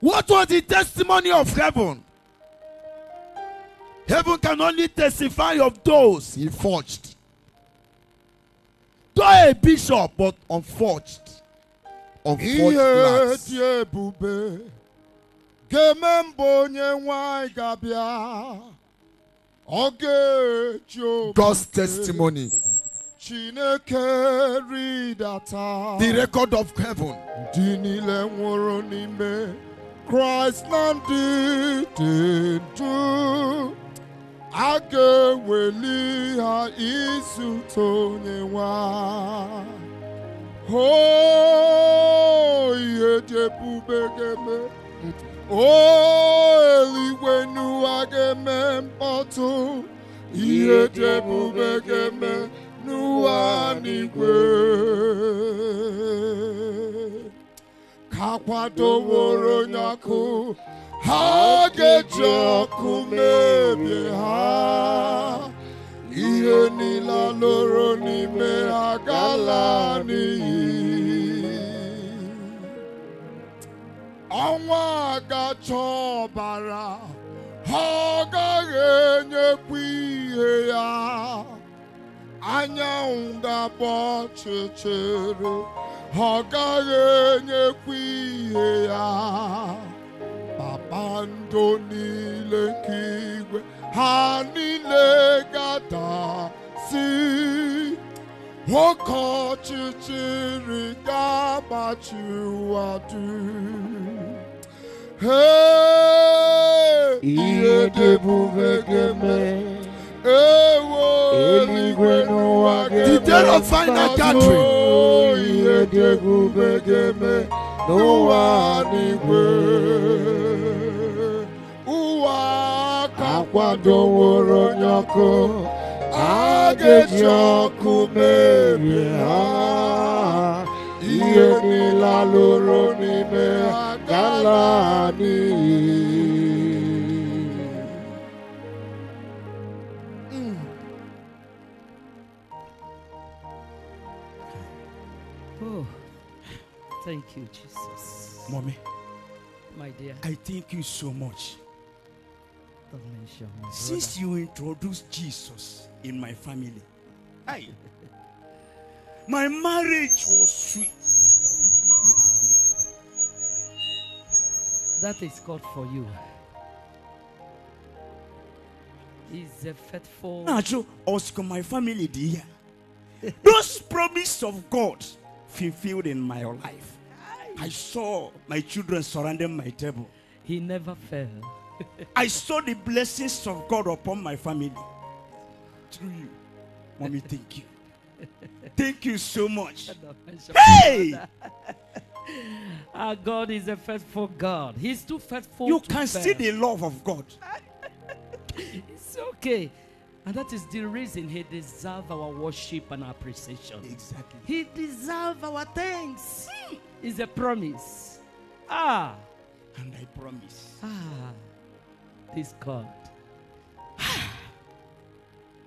What was the testimony of heaven? Heaven can only testify of those he forged. Though a bishop, but unforged. Unforged lads. God's testimony. The record of heaven. Christ a ga-eweli ha izute onye nwa ihe ebube ga-eme eluigwe n'ụwa ga-eme mkpọtụ ihe dị ebube ga-eme n'ụwa n'igwe ka kwadoworo onye ọkụ ha ga-eji ọkụ mebie ha ihe niile lụrụ n'ime ha gala n'iyi ọnwa ga-achọ ọbara ha ọ gaghị enyekwa ihe ya anyanwụ ga-agba ọchịchịrị ha ọ gaghị enyekwa ihe ya kpakpando niile nke igwe ha niile ga-adasi the day of final gathering akwadoworo onye ọkụ a ga-eji ọkụ merie ha ihe niile lụrụ n'ime ha hmm. oh, Thank you, Jesus. Mommy. My dear. I thank you so much. Since you introduced Jesus in my family, I, my marriage was sweet. That is God for you. He's a faithful. Natural, ask my family, dear. Those promises of God fulfilled in my life. I saw my children surrounding my table. He never failed. I saw the blessings of God upon my family through you. Mommy, thank you. Thank you so much. Hey! Our God is a faithful God. He's too faithful. You to can fail. see the love of God. it's okay. And that is the reason He deserves our worship and appreciation. Exactly. He deserves our thanks. Hmm. Is a promise. Ah. And I promise. Ah.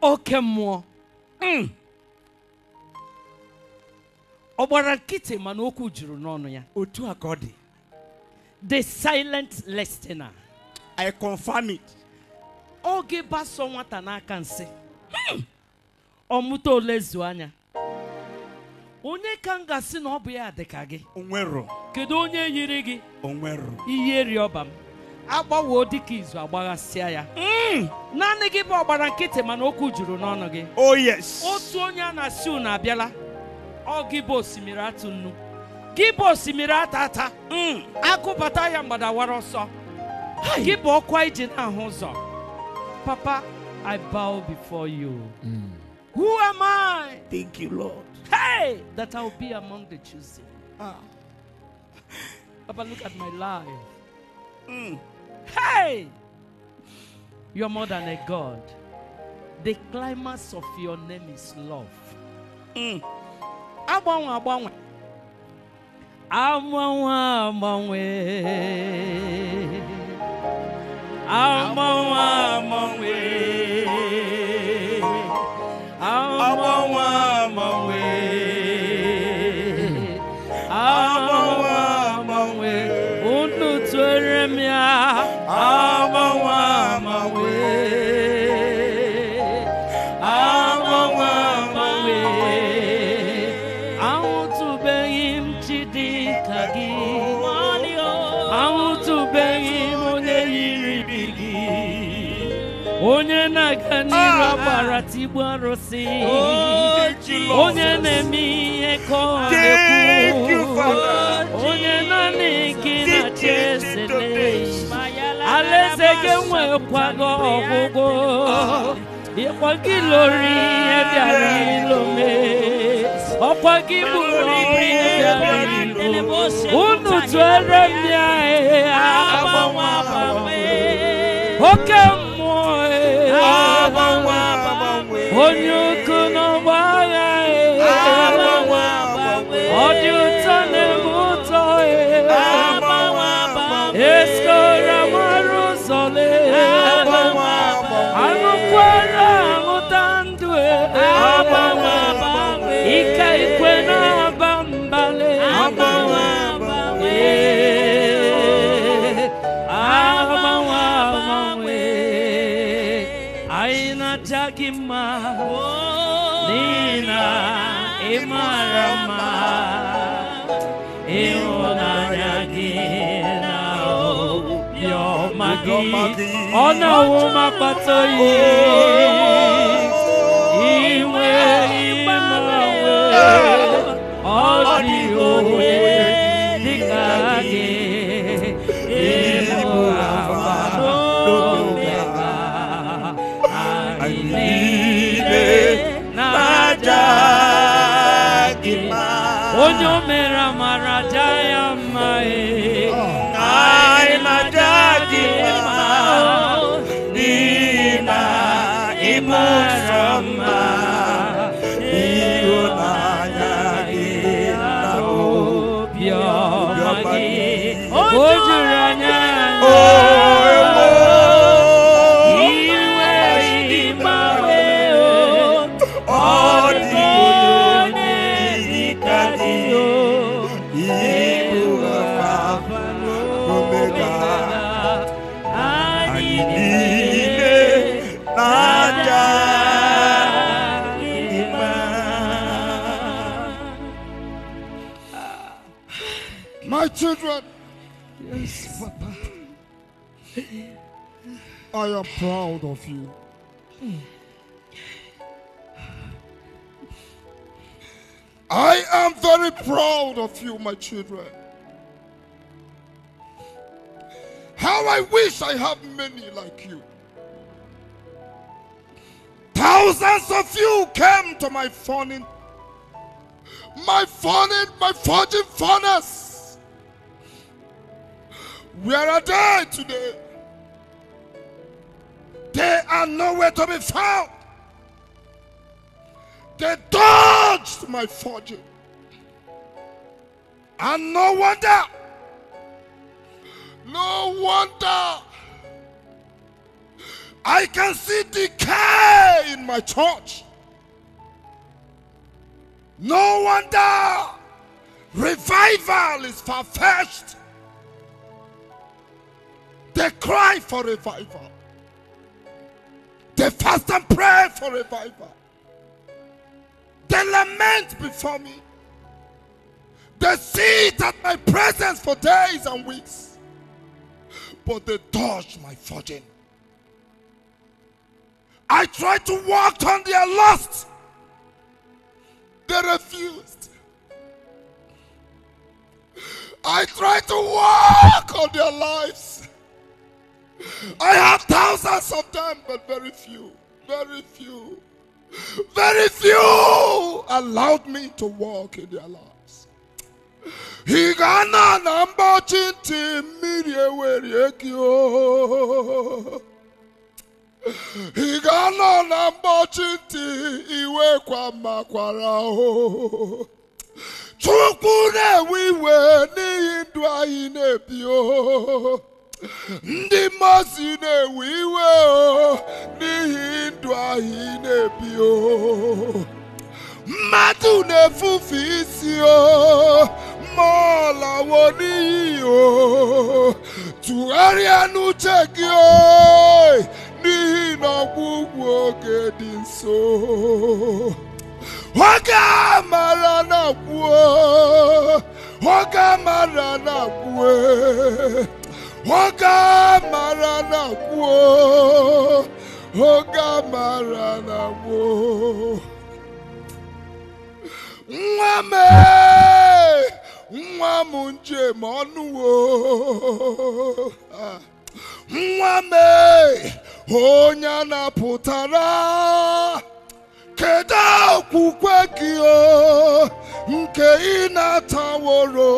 Oke mmụọ ọ gbara nkịtị mana okwu juru n'ọnụ ya otu a dị the silent listener I confirm it oge baso nwata n'aka nsị ọmụta hmm. mụta ole anya onye ka m na ọ bụ ya dị gị onwero kedu onye yiri gị onwero ihe rịọba m agbawoo dịka izu agbaghasịa ya hmm. naanị gị bụ ọgbara nkịtị mana okwu juru n'ọnụ gị oh yes otu onye a na-asị unu abịala ọ gị bụ osimiri atụ nnu gị bụ osimiri ata ata hmm. akụbata ya mgbadawara ọsọ gị bụ ọkwa iji na-ahụ ụzọ papa i bow before you hmm. who am i thank you lord hey that i will be among the chosen ah. papa look at my life Mm. Hey! You're more than a God. The climax of your name is love. Mm. Agbanwe, agbanwe. igbu oh, onye na-eme ihe ka ọ na-ekwu onye naanị gị na chesele alaeze gị nwekwago ọgwụgwụ ịkwa gị lori ihe bịara ilome ọkwa gị bụrụ ọrụ ihe bịara ilo unu tụere ndị agha agbanwe oke mma on your ọ̀nà wo má pàtó yìí ìwé ìmọ̀ ojú rẹ̀ yẹn. I am proud of you. I am very proud of you, my children. How I wish I have many like you. Thousands of you came to my fawning, my fawning, my forging furnace. Where are they today? They are nowhere to be found. They dodged my fortune. And no wonder, no wonder, I can see decay in my church. No wonder revival is far fetched. They cry for revival. They fast and pray for revival. They lament before me. They see at my presence for days and weeks. But they dodge my fortune. I try to walk on their lust. They refused. I try to walk on their lives. I have thousands of them, but very few, very few, very few allowed me to walk in their lives. He gana number chinti miri Ịga nọ na mgbochi ntị iwe kwa makwara o. Chukwu na-ewe iwe n'ihi ndu ndị mmasị na-ewe iwe o n'ihi ndụ ahụ na-ebi o mmadụ na-efufe isi o mmụọ lawo n'ihi o tụgharịa n'uche gị o n'ihi na ọgwụgwụ oge dị nso oge a mara na-akwụ oge a mara na-akwụ e. Oge a mara na gboo oge mara na nwa m nwa m njem ọnụwo nwa m onye a na-apụtara, kedu okwukwe gị o nke ị na-ataworo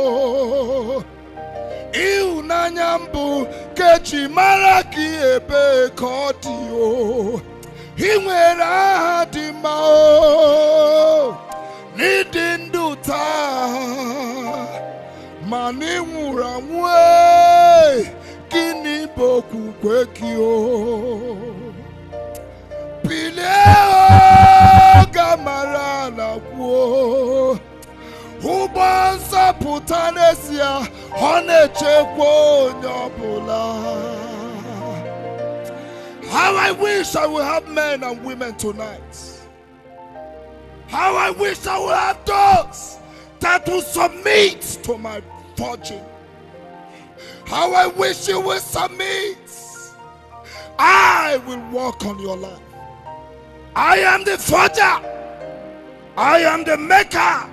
ịhụnanya mbụ kechi mara ka ebe ka ọ dị o ị nwere aha dị mma o n'ịdị ndụ taa ma na ịnwụrụ anwụ e. gịnị bụ okwukwe gị o bilie ga mara ala kwuo n'ezie ọ na-echekwa onye ọbụla How I wish I would have men and women tonight. How I wish I would have those that will submit to my fortune. How I wish you will submit. I will walk on your life. I am the forger. I am the maker.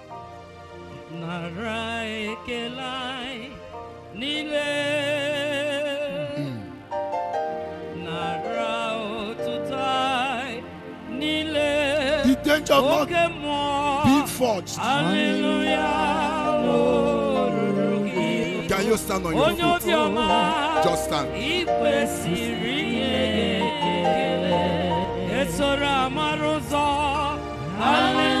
নারায় কেলাই নিলে নারাও তুতাই নিলে The danger of not being forged. Hallelujah. Can you stand on your feet? Just stand. Hallelujah.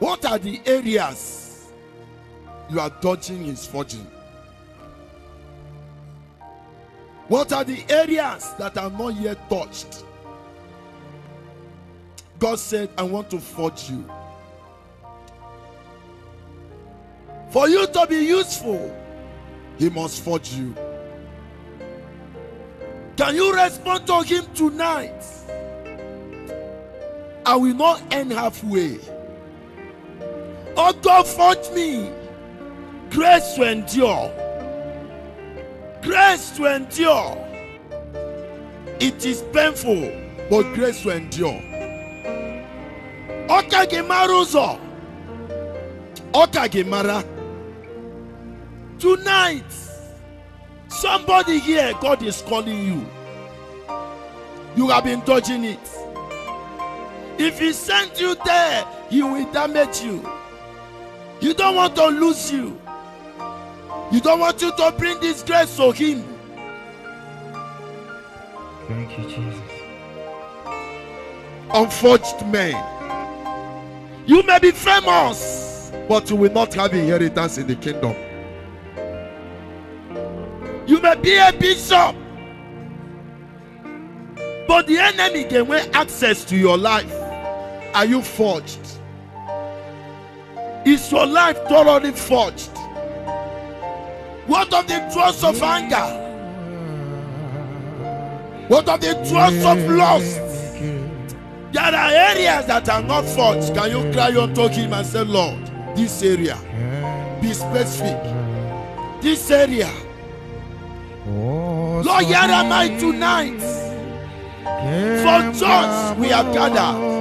what are the areas you are dodging his fortune? What are the areas that are not yet touched? God said, I want to forge you. For you to be useful, He must forge you. Can you respond to him tonight? I will not end halfway. Oh God, forge me grace to endure. Grace to endure. It is painful, but grace to endure. Ọka Gemaruzo, ọka Gemara. mara. Tonight, Somebody here, God is calling you. You have been dodging it. If He sent you there, He will damage you. You don't want to lose you. You don't want you to bring disgrace to Him. Thank you, Jesus. Unforged man, You may be famous, but you will not have inheritance in the kingdom. You may be a bishop, but the enemy can wear access to your life. Are you forged? Is your life thoroughly forged? What of the trust of anger? What of the trust of lust? There are areas that are not forged. Can you cry unto him and say, Lord, this area, be specific. This area, Lord, here am I tonight. For church we have gathered.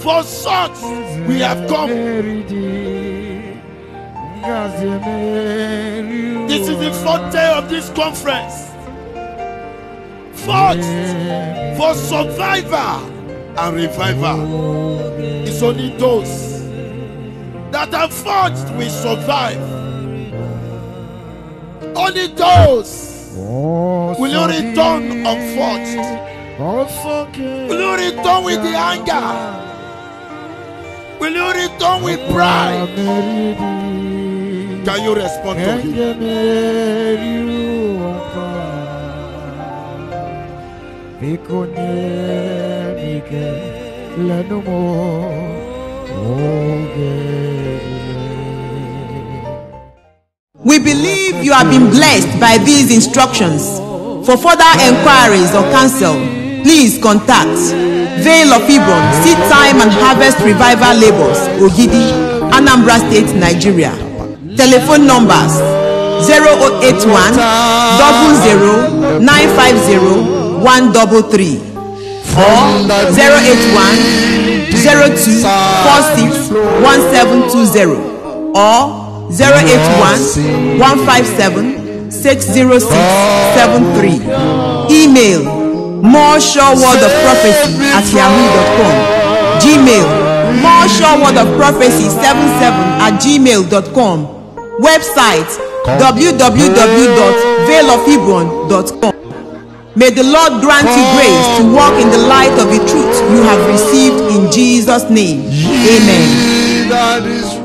For such we have come. This is the fourth day of this conference. Fought for survivor and revival. It's only those that are forged will survive. Only those Oh, Will you return unforged? Oh, Will you return with the anger? Will you return with oh, pride? Can you respond to him? We believe you have been blessed by these instructions. For further enquiries or counsel, please contact Vale of Hebron Seed Time and Harvest Revival Labels, Ogidi, Anambra State, Nigeria. Telephone numbers 0081 00 950 or 081 02 or 081 157 60673. Email more sure word of prophecy at yahoo.com. Gmail more sure word of prophecy 77 at gmail.com. Website www.veilofhebron.com. May the Lord grant you grace to walk in the light of the truth you have received in Jesus' name. Amen.